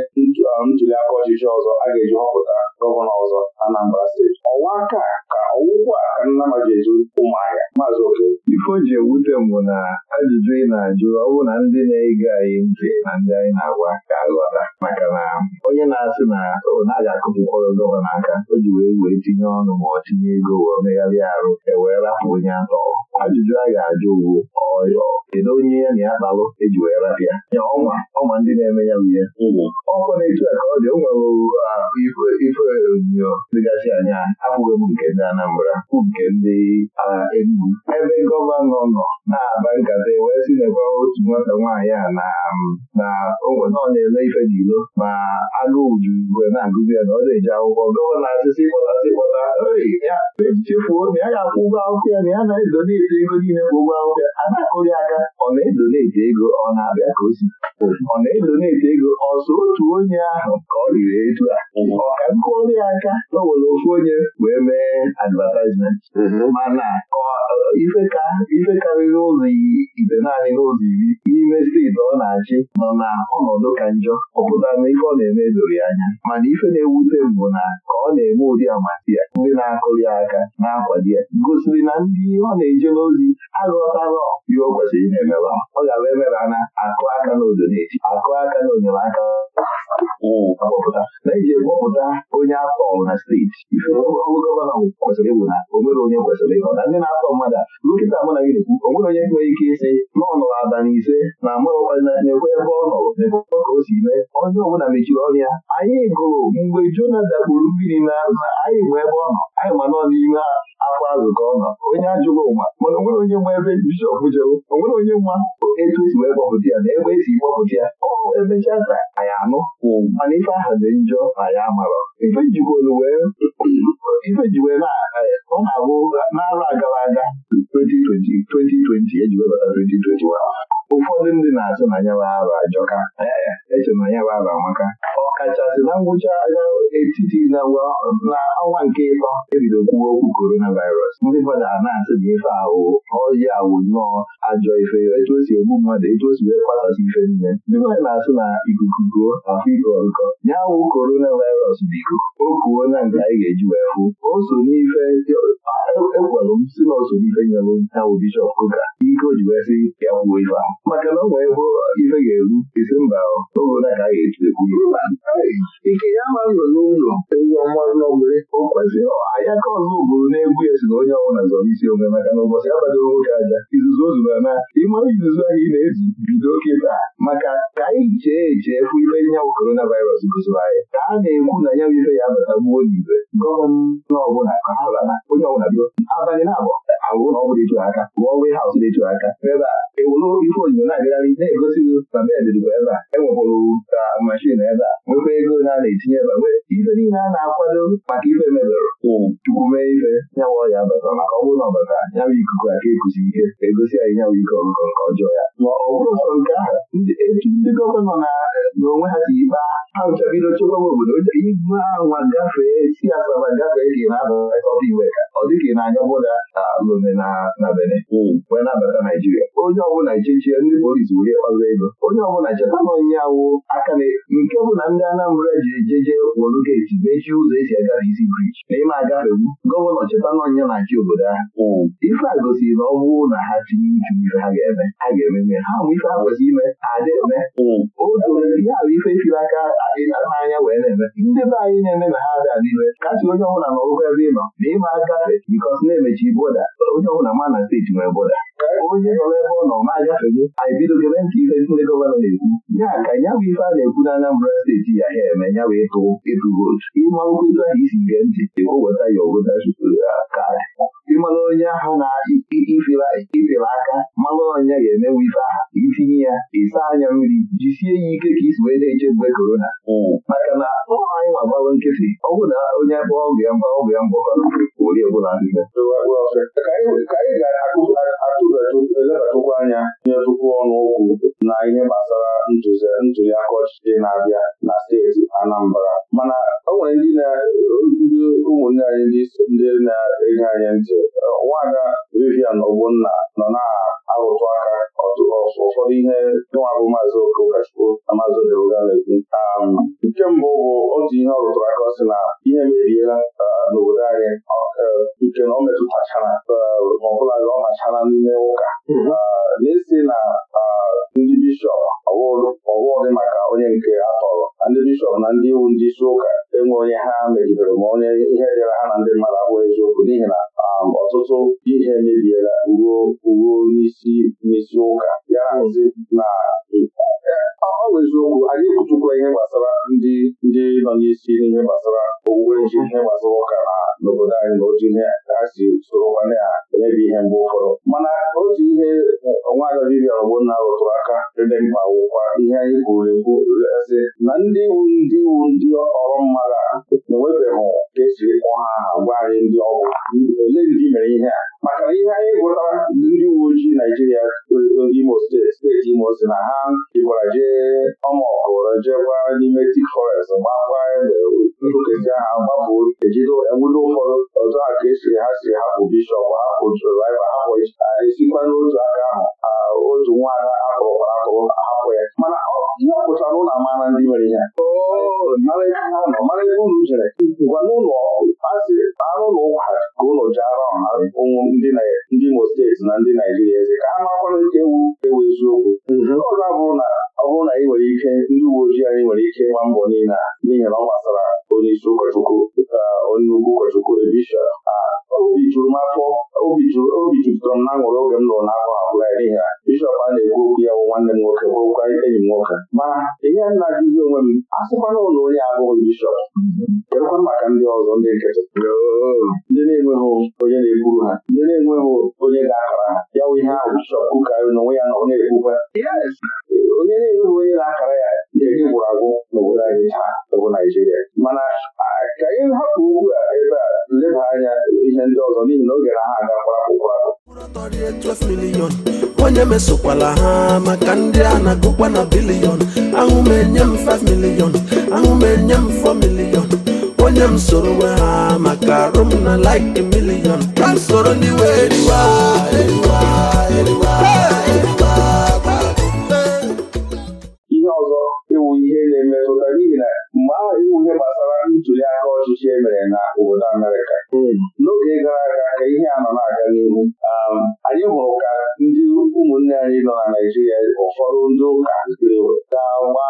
ntuli aka ọchịchị ọzọ a ga-eji họpụta gọvanọ ọzọ Anambra steeti ọnwa aka ka ọwụkwụ nnamajezu ụmụahịa maazị oke ife o ji ewute m bụ na ajụjụ ị na-ajụ ọ bụ na ndị na-ege anyị ntị na ndị anyị na-agwa ka aghọta maka na onye na-asị na ọ naghị akụpụkwọrọ gọvanọ aka o ji wee wee tinye ọnụ ma ọ tinye ego wee megharịa arụ ewee rapụ onye atọ ajụjụ a ga-ajụ ugwu ọyọ kedu onye ya na ya kpalụ eji wee rapịa ya ọnwa ọnwa ndị na-eme ya bụ ihe ọkwa na-etu a ka ọ dị o nwere ah, ife onyinyo dịgasị anya abụghị m nke ndị Anambra bụ nke ndị Enugwu ebe gọvanọ nọ na-aba nkata e wee si na e otu nwata nwaanyị a na um, onwena nọ na-ele ife n'ilo ma agụụ juru na-agụzi ya na ọ na-eji akwụkwọ gọvanọ asịsị kpọtasị kpọta ya e chefuo na ya ga-akwụ ụgwọ akwụkwọ ya na ya na-edoneti ego niile bụ ụgwọ akwụkwọ ya a na-akụrị aka ọ na-edoneti ego ọ na-abịa ka o si ọ na-edoneti ego ọzọ otu onye ahụ ka ọ riri etu a ọ ka nkụrị aka na onye wee mee advatizment mana uh, ifeka karịrị ụzọ ibe naanị n'ụzọ iri n'ime steeti ọ na-achị nọ na ọnọdụ ka njọ ọ pụtara na ọ na-eme doro anya mana ife na-ewute bụ na ka ọ na-eme ụdị amasị ya ndị na-akụli aka na-akwado ya gosiri na ndị ọ na-eje n'ozi aghọtara ihe o kwesịrị na-emela ọ ga-abụ emera na akụ aka n'odo na-eji akụ aka n'odo na aka na-eji kpọpụta onye atọlụ na steeti ife gọvanọ kwesịrị ịbụ na ome nwere onye kwesịrị ịnọ na ndị na-atọ mmadụ nkịta mụ na gị na nwere onye nwere ike ịsị na na ise na amụrụna ebe ọ nọrọ na-ekwe ka o si mee onye ọbụla mechiri ọnụ ya anyị gụrụ mgbe Jona dakpuru mmiri anyị nwe ebe ọ anyị ma nọ n'ime afọ azụ ka onye ajụrụ ụwa mana onwere onye nwe ebe bishọp jeru onwere onye nwa etu esi wee gbapụta ya ọ na-abụ agara aga 2020 eji webata 2021 ụfọdụ ndị na-asụ na anyara arụ ajọka echere e na anyara arụ amaka Kachasị na ngwụcha etiti na n'ọnwa nke ịtọ ebido kwuo okwu coronavirus ndị mmadụ a na-asị ife ahụ ọyi awụ nnọọ ajọ ife etu o si egbu mmadụ etu o si wee ife niile ndị mmadụ na-asị na ikuku afọ iko ọrụkọ ya wụ coronavirus bụ ikuku o kuo na nke anyị ga-eji wee hụ o so n'ife ekwelụ m si n'ife nyelụ ji wee ya kwuo ife ahụ a ike ya ma nọ n'ụlọ ewu ọnwa n'ọgbere o kwaziri anya ka ọzọ obodo na-egwu esi na onye ọbụla zọrọ isi onwe maka na ụbọchị agbado nwoke aja izuzu o zuru na ịma izuzu anyị na-ezu bido kịta maka ka anyị chee eche ihe ibe korona coronavirus gosiri anyị ka a na-ekwu na ya ife ya bata gbuo ọbụla ka ha onye ọbụla bido abalị na-abụ alụ na aka haus aka ebe a ife ebe a e ah, nwekwa ego na a na-etinye ebe banye ife niile a na-akwado maka ife mebere hmm. tupu mee ife nyawa ọya bata maka ọ bụrụ na ọ nyawa ikuku aka ekuzi ihe egosi anyị nyawa ike ọgụgọ nke ọjọọ ya ma ọ bụrụ sọ nke ahụ etu ndị gọvanọ na n'onwe ha si ikpa ha nchabido chekwaba obodo igwe anwa gafee si asaba gafee ka ị na-abata iwe ka ọ dịka ị na-anya bụda lome na bene hmm. wee nabata naijiria onye ọbụla echechie ndị polisi were kpazụ ego onye ọbụla cheta na onye awụ aka nke bụ na ndị Anambra jiri jeje wolu geeti mechie ụzọ esi agara isi briji ma ịma agafewu gọvanọ cheta n'ọnya na-achị obodo ahụ hmm. ife a gosiri na ọ bụrụ na ha tinye uchu ife ha ga-eme ha ga mee. ha ụmụ ife ha kwesịrị ime hmm. adị eme otu ihe ahụ ife firi aka n'anya wee na-eme ndị be anyị na-eme na ha adị adịbe kasị onye ọbụla nọrụkwa ebe ị nọ ma ịma agafe bikọs na-emechi boda onye ọbụla ma na steeti nwere boda onye nọ n'ebe ọ nọ ma agafeghị anyị bidogebe ntị ife ndị gọvanọ na-ekwu ya ka ya bụ ife a na-ekwu na Anambra steeti ya ha eme ya bụ ịtụ ịtụ vootu ịmalụ etu ahụ isi gee ntị weta ya oweta kaadị ịmalụ onye ahụ na-ifere aka malụ onye ga-emenwe ife aha itinye ya ịsa anya mmiri jisie ya ike ka isi wee na-eche mgbe korona hmm. maka na ọ anyị ma gbawa ọ bụ na onye akpọ ọgụ ya mgba ọgụ ya mgba oyi ọbụla ka anyị ga-atụbatụkwa anya nyetụkwu ọnụ okwu na ihe gbasara ntụliaka ọchịchị na-abịa na steeti Anambra mana o nwere ndị na-eji ndị ụmụnne anyị ndị na enye anyị ntị nwada Vivian Ogbonna nọ na-arụtụ aka ụfọdụ ihe nwa bụ maazị Okachukwu na maazị Odeuga na-ekwu um, nke mbụ bụ otu ihe ọ rụtụrụ aka sị na ihe meriela uh, n'obodo anyị uh, nke na uh, ọ metụtachara ọbụla ọ machara n'ime ụka mm-hmm. na-esi na ndị bishọp ọwụdị maka onye nke atọrọ na ndị bishọp na ndị iwu ndị isi ụka enwe onye ha mejidere ma onye ihe dịra ha na ndị mmadụ abụghị eziokwu n'ihi na ọtụtụ ihe mebiela ruo ruo n'isi n'isi ụka ya nzi na ọ bụ eziokwu anyị ekwuchukwa ihe gbasara ndị ndị nọ n'isi n'ihe gbasara owuwe ji ihe gbasara ụka na n'obodo anyị na oji ihe ha si soro nwanne ha emebi ihe mgbe ụfọdụ mana otu ihe nwaanyị dibịa ọgbụnna rụtụrụ aka ebe mkpa wụkwa ihe anyị kwuru ekwu sị na ndị iwu ndị iwu ndị ọrụ mmadụ agha enwebeghị ka esi kpọọ ha gwa anyị ndị ọgwụ ole ndị mere ihe a maka ihe anyị gụtara ndị uwe ojii Naijiria Imo steeti steeti Imo si na ha jikwara jee ọmụọkụrụ jee gwa n'ime tik forest gbakwa ede nkezi ha gbapụ ejide ụmụ ụfọdụ ọzọ ha ka esiri ha siri hapụ bishọp hapụ ha hapụ esikwa n'otu aka ahụ otu nwaada akọrọkwara akọrọ hapụ ya mana ihe ọpụta n'ụlọ amara ndị mere ya mara ebe jere gwa n'ụlọ asị na ka ụlọ ji ara ndị Imo steeti na ndị Naijiria eze ka ha nke ewu ewu eziokwu ọzọ abụrụ na ọ bụrụ na ị nwere ike ndị uwe ojii anyị nwere ike ịgba mbọ niile n'ihi na ọ gbasara onyeisi ụkọchukwu dịka onye ugwu ụkọchukwu Elisha obi juru m afọ obi obi jupụtara m n'aṅụrị oge m nụrụ n'afọ abụọ ya n'ihi na bishọp a na-ekwu okwu ya bụ nwanne m nwoke bụrụkwa enyi m nwoke ma ihe na-ajụzi onwe m asịkwana ụlọ onye abụghị bishọp kedụkwa maka ndị ọzọ ndị nkịtị ndị na-enweghị onye na-ekwuru ha ndị na-enweghị onye ga-akara ha ya bụ ihe ahụ bishọp kwukarịrị onwe ya na ọ na-ekwukwa onye na-enweghị onye na-akara ya ihe gwụrụ agwụ n'obodo anyị taa Naijiria mana ka anyị hapụ okwu a ebe a leba anya ihe ndị ọzọ n'ihi na oge na ha agakwa akwụkwọ ahụ onye mesokwala ha maka ndị a na-agụkwa na bilion ahụ m enye m 5 milion ahụ m enye m 4 milion onye m soro ha maka arụ m na like milion ka m soro ndị wee eriwa eriwa eriwa mkpuchi e mere na obodo Amerịka hmm. n'oge gara aga ka ihe a nọ na-aga n'ihu um, anyị hụrụ ka ndị ụmụnne anyị nọ na naijiria ụfọdụ ndị ụka ga-agba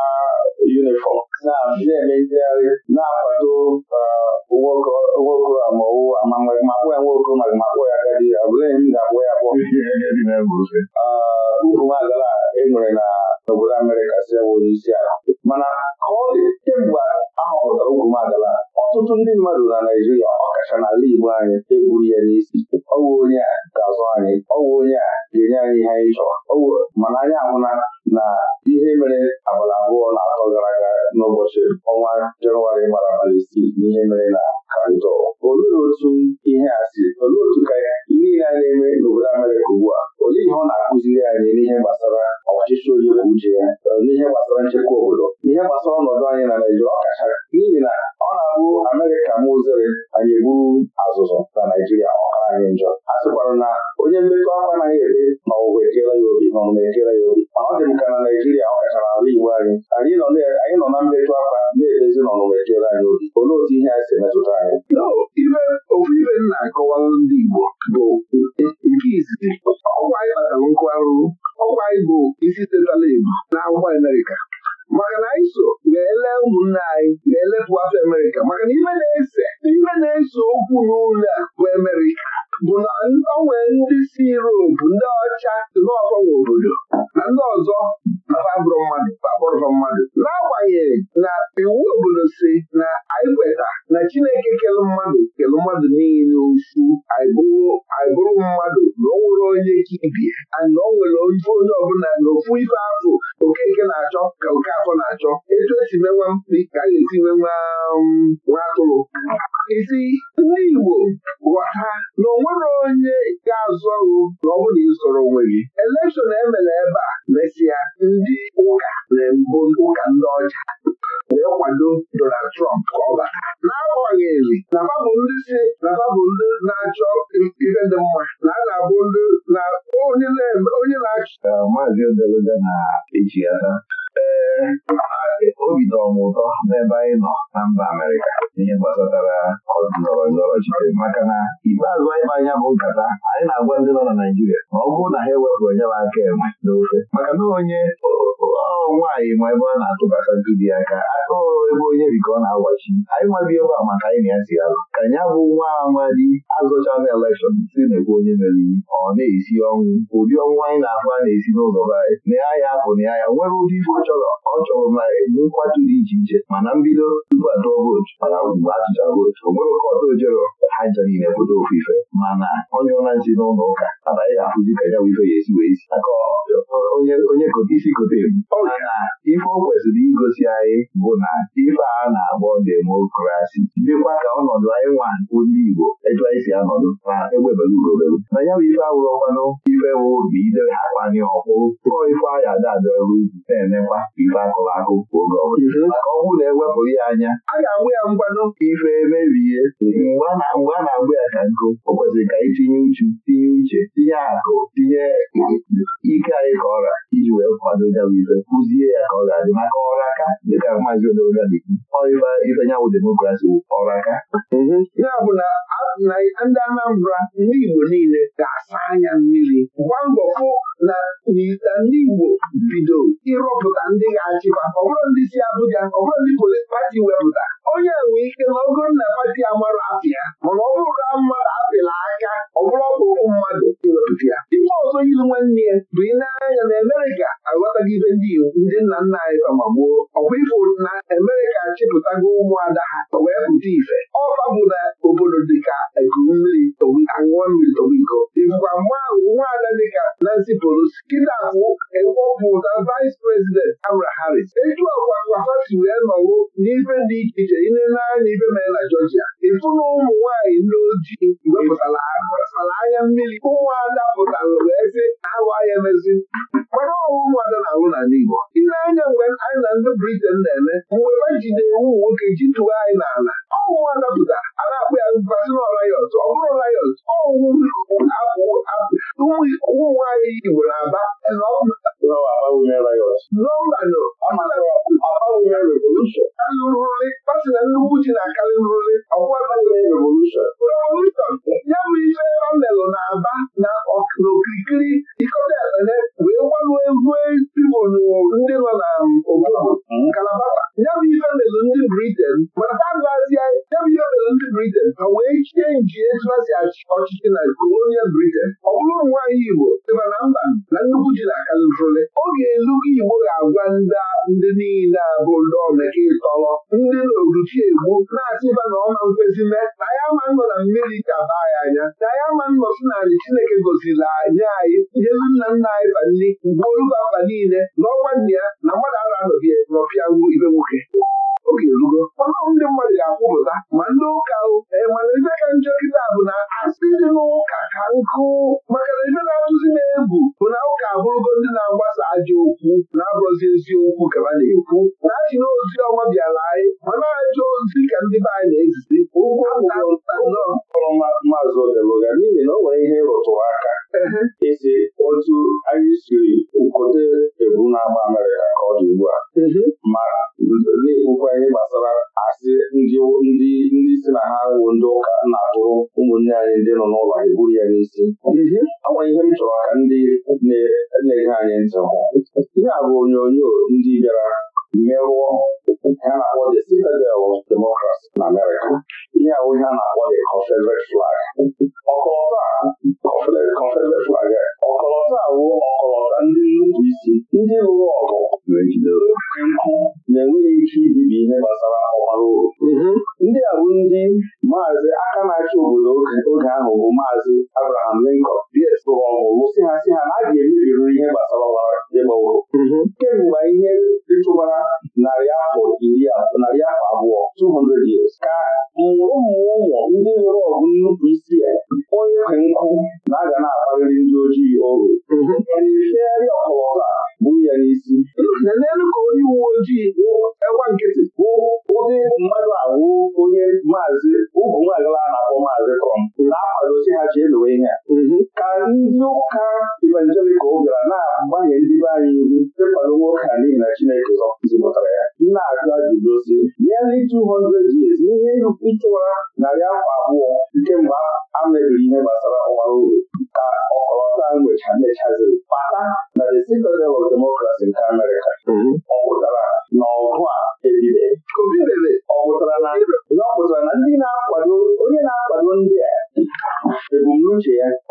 na onwere onye ga-azụ ọrụ na ọ bụrụ na onwe gị elekshọn emere ebe a. anyị nwa bi a maka anyị na ya zigara ka nya bụ nwa amadi azụchana elekshọn si na-ekwu onye meriri ọ na-esi ọnwụ ụdị ọnwụ anyị na-ahụ a na-esi n'ụzọ be anyị na ya ya na ya ya nwere ụdị ife ọ chọrọ ọ chọrọ ma enye nkwatu dị iche iche mana mbido tupu atụọ vootu mana ugbu atụchara vootu o nwere oke ọtọ ojero ha chọghị na-enweta ofufe ife mana onye ụla nsi n'ụlọ ụka anaghị afụzi ka ya ife ya esi wee isi maka onye isi kote ebu mana ife o kwesịrị igosi anyị bụ na ife a na agbọ demokrasi dịkwa ka ọnọdụ anyị nwa ndị Igbo etu anyị si anọdụ ma egbebere urobere na ya bụ ife awụrụ mmanụ ife idere akpanye tụọ ife ada na-emekwa ife akụrụ akụ oge ọ na ewepụrụ anya a ga-agba ya ife mgbe a na-agba ya ka nkụ o kwesịrị ka itinye e uchu tinye uche tinye akụ tinye ike anyị ka ọra iji wee kwado ya bụ ya ka ọ ga-adị maka ọra ka dịka maazị dị ndị Anambra ndị Igbo niile ga-asa anya mmiri gwa mbọ fụ na ndị Igbo bido ịrụpụta ndị ga-achịkwa Ọbụrụ ndị si Abuja ọbụrụ ndị polis pati wepụta onye nwee ike na ogo na pati amara afịa mana ọ bụrụ na mmadụ apịla aka ọ ọzọ yiri nwanne ya bụ ị na-anya na Amerịka ibe ndị iwu ndị nna nna anyị ma gboo ọkwa ifo na Amerịka achịpụtago ụmụada ha wee pụta ife ọfa bụ na obodo dịka nkuru mmiri aṅụọ mmiri tobigo ibụkwa nwaada dịka Nancy Pelosi kịta ahụ ewepụ na vice president Kamala Harris Eju ọkwa kwafati wee nọwụ n'ife dị iche iche ile n'anya ibe mere na Georgia ịfụ ụmụ nwaanyị ndị ojii wepụtara anya mmiri ụmụada pụtara wee sị ahụ anya mezi mara ọnwụ ụmụada na-ahụ n'ala Igbo ile anya mgbe anyị na ndị Briten na-eme mgbe ji na-ewu nwoke ji tụwa anyị n'ala ọnwụwa dapụta ala akpụ ya basịn rayọt ọ bụrụ rayọt ụmụ nwaanyị Igbo na-aba nọmbanụrụrị pasị na nnukwu ji na-akarị nrụrị ya bụ ihe ọ melụ na-aba na n'okirikiri dịkọta Owere wee gbanwe rue ndị nọ na obodo Kalabata. Ya bụ ife ndị Briten mana ha ndị Briten wee chie nji e etu ha si ọchịchị na kolonial Briten ọ bụrụ nwaanyị Igbo dịba na mba na nnukwu ji na-akarịrụle oge ga Igbo ga-agwa ndị niile abụ ndị omeke ịtọrọ ndị n'oruchi egbu na-asịba na ọma nkwezi mee na ya ma nọ na mmiri ka baa ya anya na ya ma nọ sị na anyị Chineke goziri anya anyị ihe nna nna anyị ba nri mgbe oluba mba niile na ọnwa ya na mmadụ ara anọbịa nọpịa ibe nwoke oge erugo ndị mmadụ ga-akwụpụta ma ndị ụka mana ife ka njọ kịta bụ na asị dị n'ụka ka nkụ maka na ife na-atụzi na-ebu bụ na ụka abụrụgo ndị na-agbasa ajọ okwu na agọzi eziokwu ka na-ekwu ya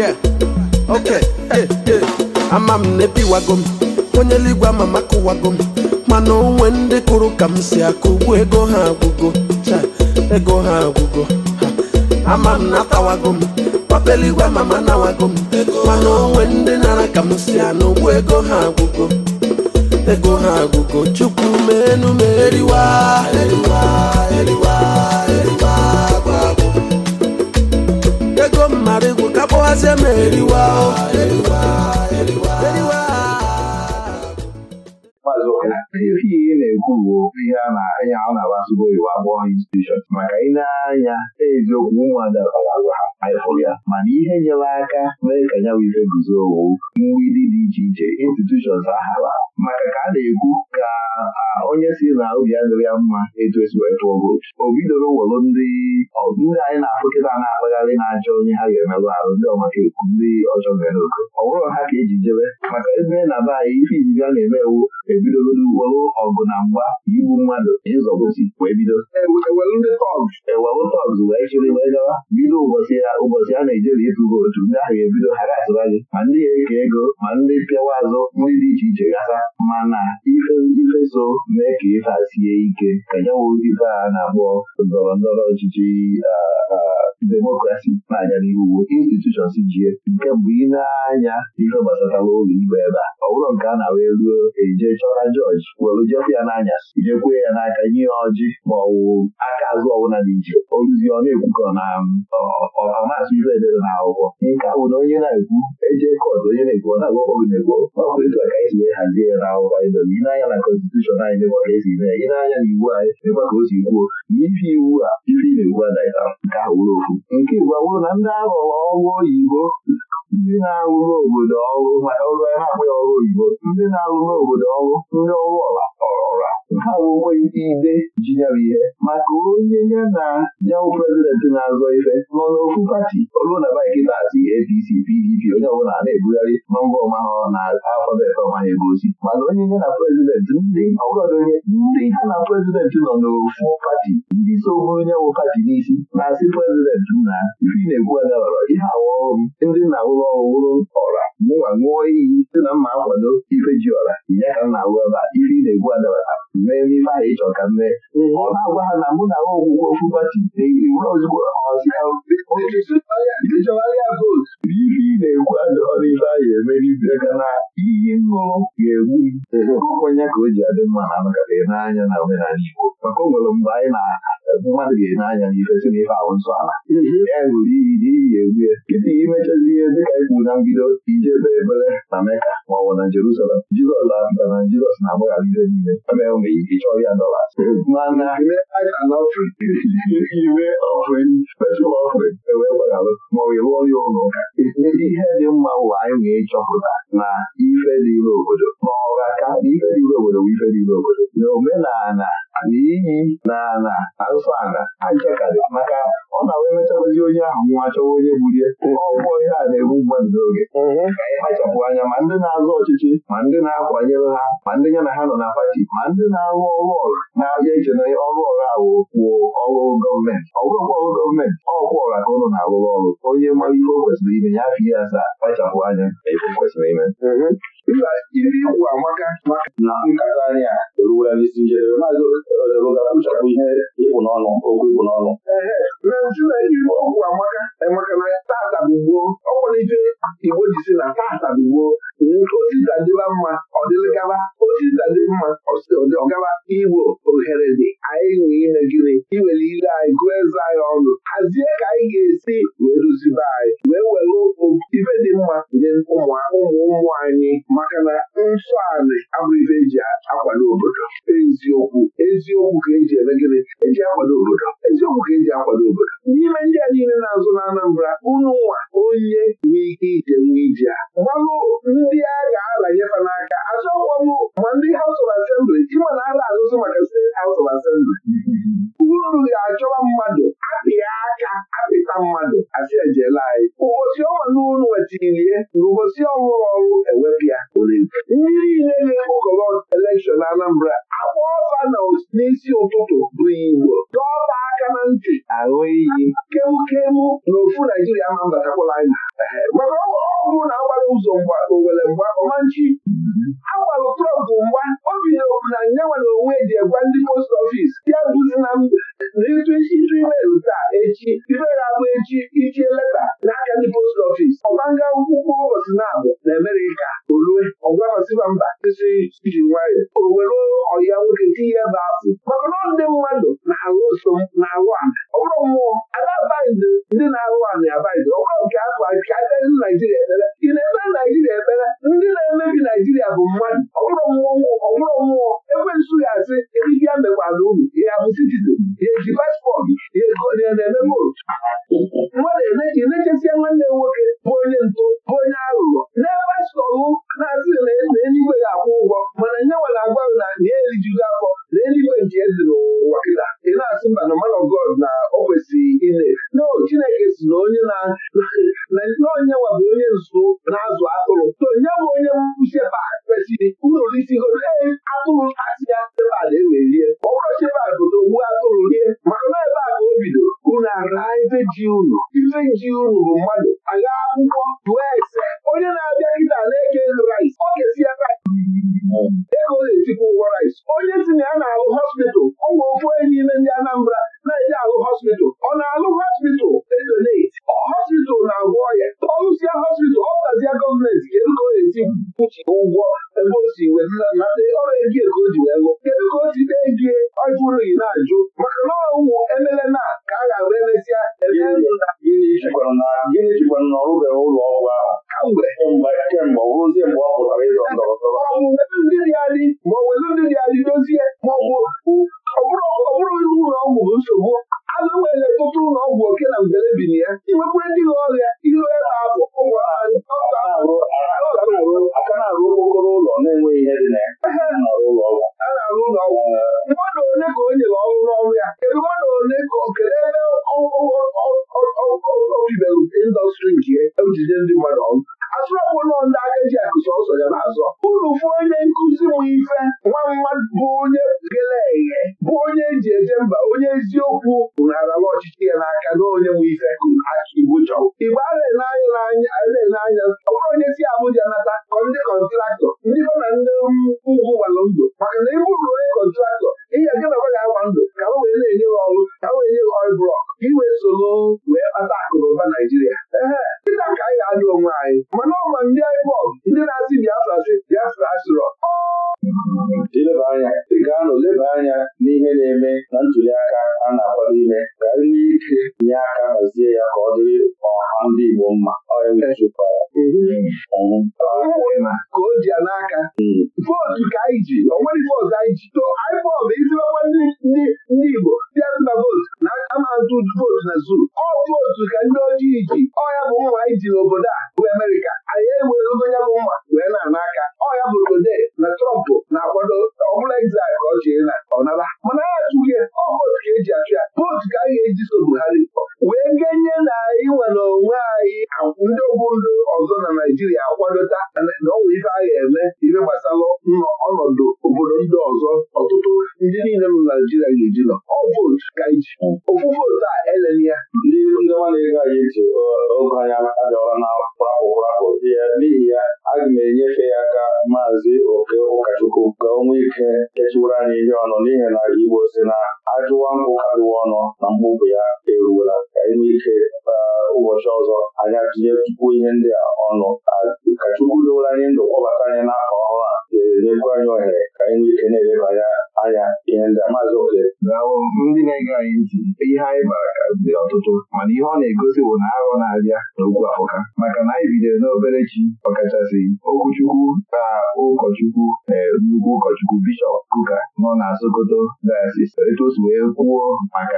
yeah okay ama m na ebiwago m onye ligwa ama m akụwago m mana onwe ndị kụrụ ka m si akụ ego ha agwụgo cha ego ha agwụgo ha. m na-atawago m papa eluigwe ama m anawago mana onwe ndị nara ka m si anụ ego ha agwụgo ego ha agwụgo chukwu meenu enume. eriwa eriwa eriwa sị m ihe na-ekwu bụ ihe a na ọ na-agbasogbo iwu abụọ institushọn maka ị na-anya eziokwu ụmụ ha mana ihe nyere aka mee ka ya bụ guzo owu mgbidi dị iche iche institushọn ahara maka ka a na-ekwu ka onye si na obi adịrị ya mma etu esi wee o bidoro welu ndị ndị anyị na-afụkịta na-akpagharị na-achọ onye ha ga-emerụ arụ ndị ọmaka ekwu ndị ọjọọ mere oke ọ bụrụ ha ka eji jebe maka ebe na be anyị ife izizi a na-eme ewu ebidoro uwewo ọgụ na mgba igbu mmadụ ịzọgosi wee bido ewelu e, ndị tọgs e, wee chịrị wee gawa bido ụbọchị ụbọchị a na-ejere ịtụ vootu ndị ahụ ebido ha gasịra gị ma ndị ga-eke ego ma ndị pịawa azụ nri dị iche iche gasa mana ife so mee ka ife a sie ike ka nyewo ife a na-akpọ ndọrọ ndọrọ ọchịchị demokrasi n'anya anya uwe institushọn jie nke mbụ ị na-anya ife gbasatara ụlọ ikpe ebe a ọ bụrụ nke a na-awa eruo eje chọra jọji were jefụ ya n'anya ijekwee ya n'aka nye ya ọjị ma ọ wụ aka azụ ọbụla dị iche oruzi ọ na-ekwukọ na ọmasị ife edere na akwụkwọ nke a bụ na onye na-ekwu eje kọt onye na-ekwu ọ na-agwakọ na-ekwu ọ bụ etu a ka wee hazie ya na akwụkwọ ịnanya na konstitushọn anyị mekwa ka esi mee na iwu anyị mekwa ka o si kwuo ife iwu a ife ị na-egbu nke ahụ wụrụ ofu nke igbo awụrụ na ndị aghọrọ ọrụ oyibo ndị na-arụrụ obodo ọrụ maka ọrụ ha akpụghị ọrụ oyibo ndị na-arụrụ obodo ọrụ ndị ọrụ ọla ọrọra ha bụ onweghị ndị ide nyere ihe maka onye ya na yawụ prezidenti na-azọ ife nọ n'ofu pati olu na baiki na-asị APC PDP onye ọbụla na-ebugharị nọmba ọma ha na alfabet ọma ha egosi mana onye nye na prezidenti ndị ọgọdọ onye ndị ha na prezidentị nọ n'ofu pati ndị so bụrụ onye wụ pati n'isi na-asị prezidentị na ife na-ekwu adabara ihe awa ọrụ ndị na-awụrụ ṅụọ owuru ọra mụnwa ṅụọ iyi site na mma akwado ife ji ọra ya ka na-arụ ebe ife ị na-egbu adabara mee n'ife ahụ ịchọ ka mee ọ na-agwa ha na mụ na ha ogwugwe ofu na-ewuru ozugbo ịchọgharịa vootu bụ ife ị na-ekwu adọrọ ife ahụ na iyi ṅụrụ ga-egbu o ji adị mma na n'anya na omenala anyị na ebe mmadụ ga na anya si na ife ahụ nsọ ala ya wuru iyi n'iyi egwue ite imechezi ihe dịka ikwu na mbido ije ebe ebere na meka ma ọ bụ na jerusalem jizọs na na jizọs na-agbaghara niile ebe enwe ike chọọ ya dọlas mana ime ewee gbaghalụ ụlọ ụka ihe dị mma anyị na ife dị obodo ife dị obodo bụ ife dị obodo na dị iyi na na azụ ala ajakarị maka ọ na wee mechakwazi onye ahụ nwa chọwa onye bulie ọgwụgwọ ihe a na-egbu mmadụ n'oge mhm. ka anyị kpachapụ anya ma ndị na azụ ọchịchị ma ndị na-akwanyere ha ma ndị ya na ha nọ na pati ma ndị na-arụ ọrụ ọrụ na-abịa iche na ọrụ ọrụ ahụ kwuo ọrụ gọọmenti ọ bụrụkwa ọrụ gọọmenti ọkwụ ọra ka ụnụ na-arụrụ ọrụ onye mara ihe o kwesịrị ime ya afọ ihe asaa kpachapụ anya ebe kwesịrị ime mhm. ibe ikwu amaka na nkata anyị a n'isi njedebe maazị ga-akpụchapụ ihe ịpụ n'ọnụ okwu n'ọnụ ibe okwu amaka na ọ nwere Igbo na tata osisa dịba mma ọ dịlịgaba osisa dị mma ọgaba igbo ohere dị anyị nwe ime gịnị iwere ile anyị gụọ eze anyị ọnụ hazie ka anyị ga-esi wee duzibe anyị wee were ibe dị mma nye ụmụ ụmụ anyị maka na nsọ anị abụrụ ibe eji akwado obodo eziokwu eziokwu ka eji eme gịnị eji akwado obodo eziokwu ka eji akwado obodo n'ime ndị a niile na-azụ n'Anambra Anambra unu nwa onye nwee ike ije nwa ije gbalụ ndị a ga-aranyefa n'aka achọkwa m ma ndị House of Assembly ịma na ala azụzụ maka steeti House of Assembly uru ga-achọwa mmadụ apịa aka apịta mmadụ asị ejela anyị ụbọchị ọnwa n'ụlọ wetilie na ụbọchị ọhụrụ ọrụ ewepịa ndị niile na-ekpokọrọ elekshọn Anambra akwa ọfa na n'isi ụtụtụ bụ igbo dọba aka na ntị aṅụ iyi kemukemu na ofu naijiria ma mbatakwala anyị ọ ọbụrụ na agbara ụzọ mgba owere mgba ọmanchi agbara trọmp mgba o bidoro na nyanwa na onwe ji egwa ndị post ọfis ya duzi na n'ịtụ ịtụ imerụ taa echi imerụ abụ echi ichie leta n'aka ndị post ọfis ọgbanga akwụkwọ ụbọchị na-abụ na Amerịka olue ọgwahọsịba mba isi iji nwayọ o were ọya nwoke tinye ebe afọ maka na ndị mmadụ na-alụ so na-alụ ana ọ bụrụ mmụọ anabaghịzi ndị na-alụ ana abaghịzi ọgwa nke afọ akaghịzi naijiria ekpere ị na-ekpere naijiria ekpere ndị na-emebi naijiria bụ mmadụ ọ bụrụ mmụọ ọ bụrụ mmụọ ekwensu ga-asị eribịa mekwala uru ya bụ citizin ya eji paspọtụ ya na-eme votu mmadụ ị na-echesia nwanne m nwoke bụ onye ntụ bụ onye ọ bụ ya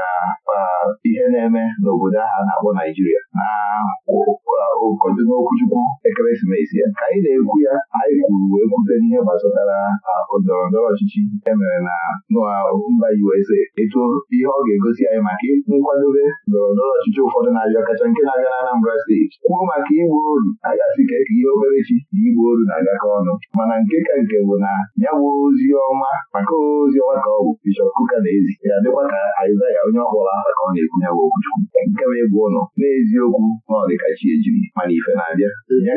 maka ihe na-eme n'obodo ahụ a na-akpọ Naijiria na okwuchukwu ekeresimesi ya anyị na-ekwu ya anyị kwuru wee kwute n'ihe gbasatara ndọrọ ndọrọ ọchịchị emere na mba USA etu ihe ọ ga-egosi anyị maka nkwadobe ndọrọ ndọrọ ọchịchị ụfọdụ na-abịa kacha nke na-abịa na Anambra steeti kwuo maka igbu oru a ga ka e ihe okperechi na igbu oru na-agakọ ọnụ mana nke ka nke bụ na ya bụ ozi ọma maka ozi ọma ka ọ bụ Bishọp Kuka na ezi ya dịkwa ka Aịzaya onye aha ka ọ na-ekwu ya bụ okwuchukwu nke bụ ịbụ ụlọ n'eziokwu na ọ ejiri mana ife na-abịa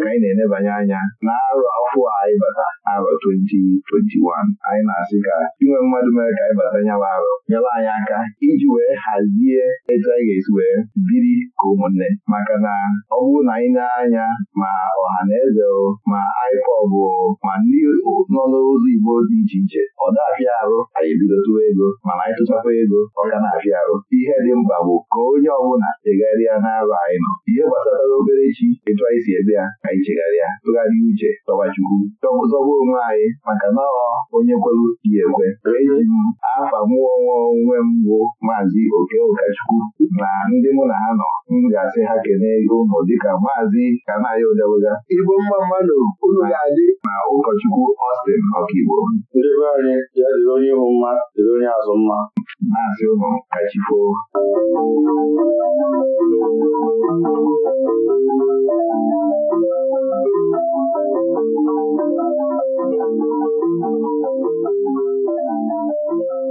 ka anyị na-enebanye anya n'arọ afọ anyị bata arọ 2021 anyị na-asị ka inwe mmadụ mere ka anyị bata nyawa arụ nyere anyị aka iji wee hazie etu anyị ga-esi wee biri ka ụmụnne maka na ọ bụrụ na anyị na-anya ma ọha na eze ma IPOB ma ndị nọ n'ụzọ Igbo dị iche iche ọ dafịa arụ anyị ebido ego mana anyị tụchakwa ego ọ ka na-afịa arụ ihe dị mkpa bụ ka onye ọbụla degharịa n'arọ anyị nọ ihe gbasatara obere chi etu anyị si ebe ya anyị chegharịa tụgharịa uche tọbachukwu zọba onwe anyị maka na ọ onye kwelu ya ekwe eji m afa mụọ nwa onwe m bụ maazị oke ụkọchukwu na ndị mụ na ha nọ m ga-asị ha kelee ụmụ dịka maazị kanayo dewega igbo mma mmadụ unu ga-adị na ụkọchukwu Austin Ọkaigbo ndị be anyị ya onye ihu mma dịrị onye azụ mma maazị ụmụ kachifoo Thank you. Thank you.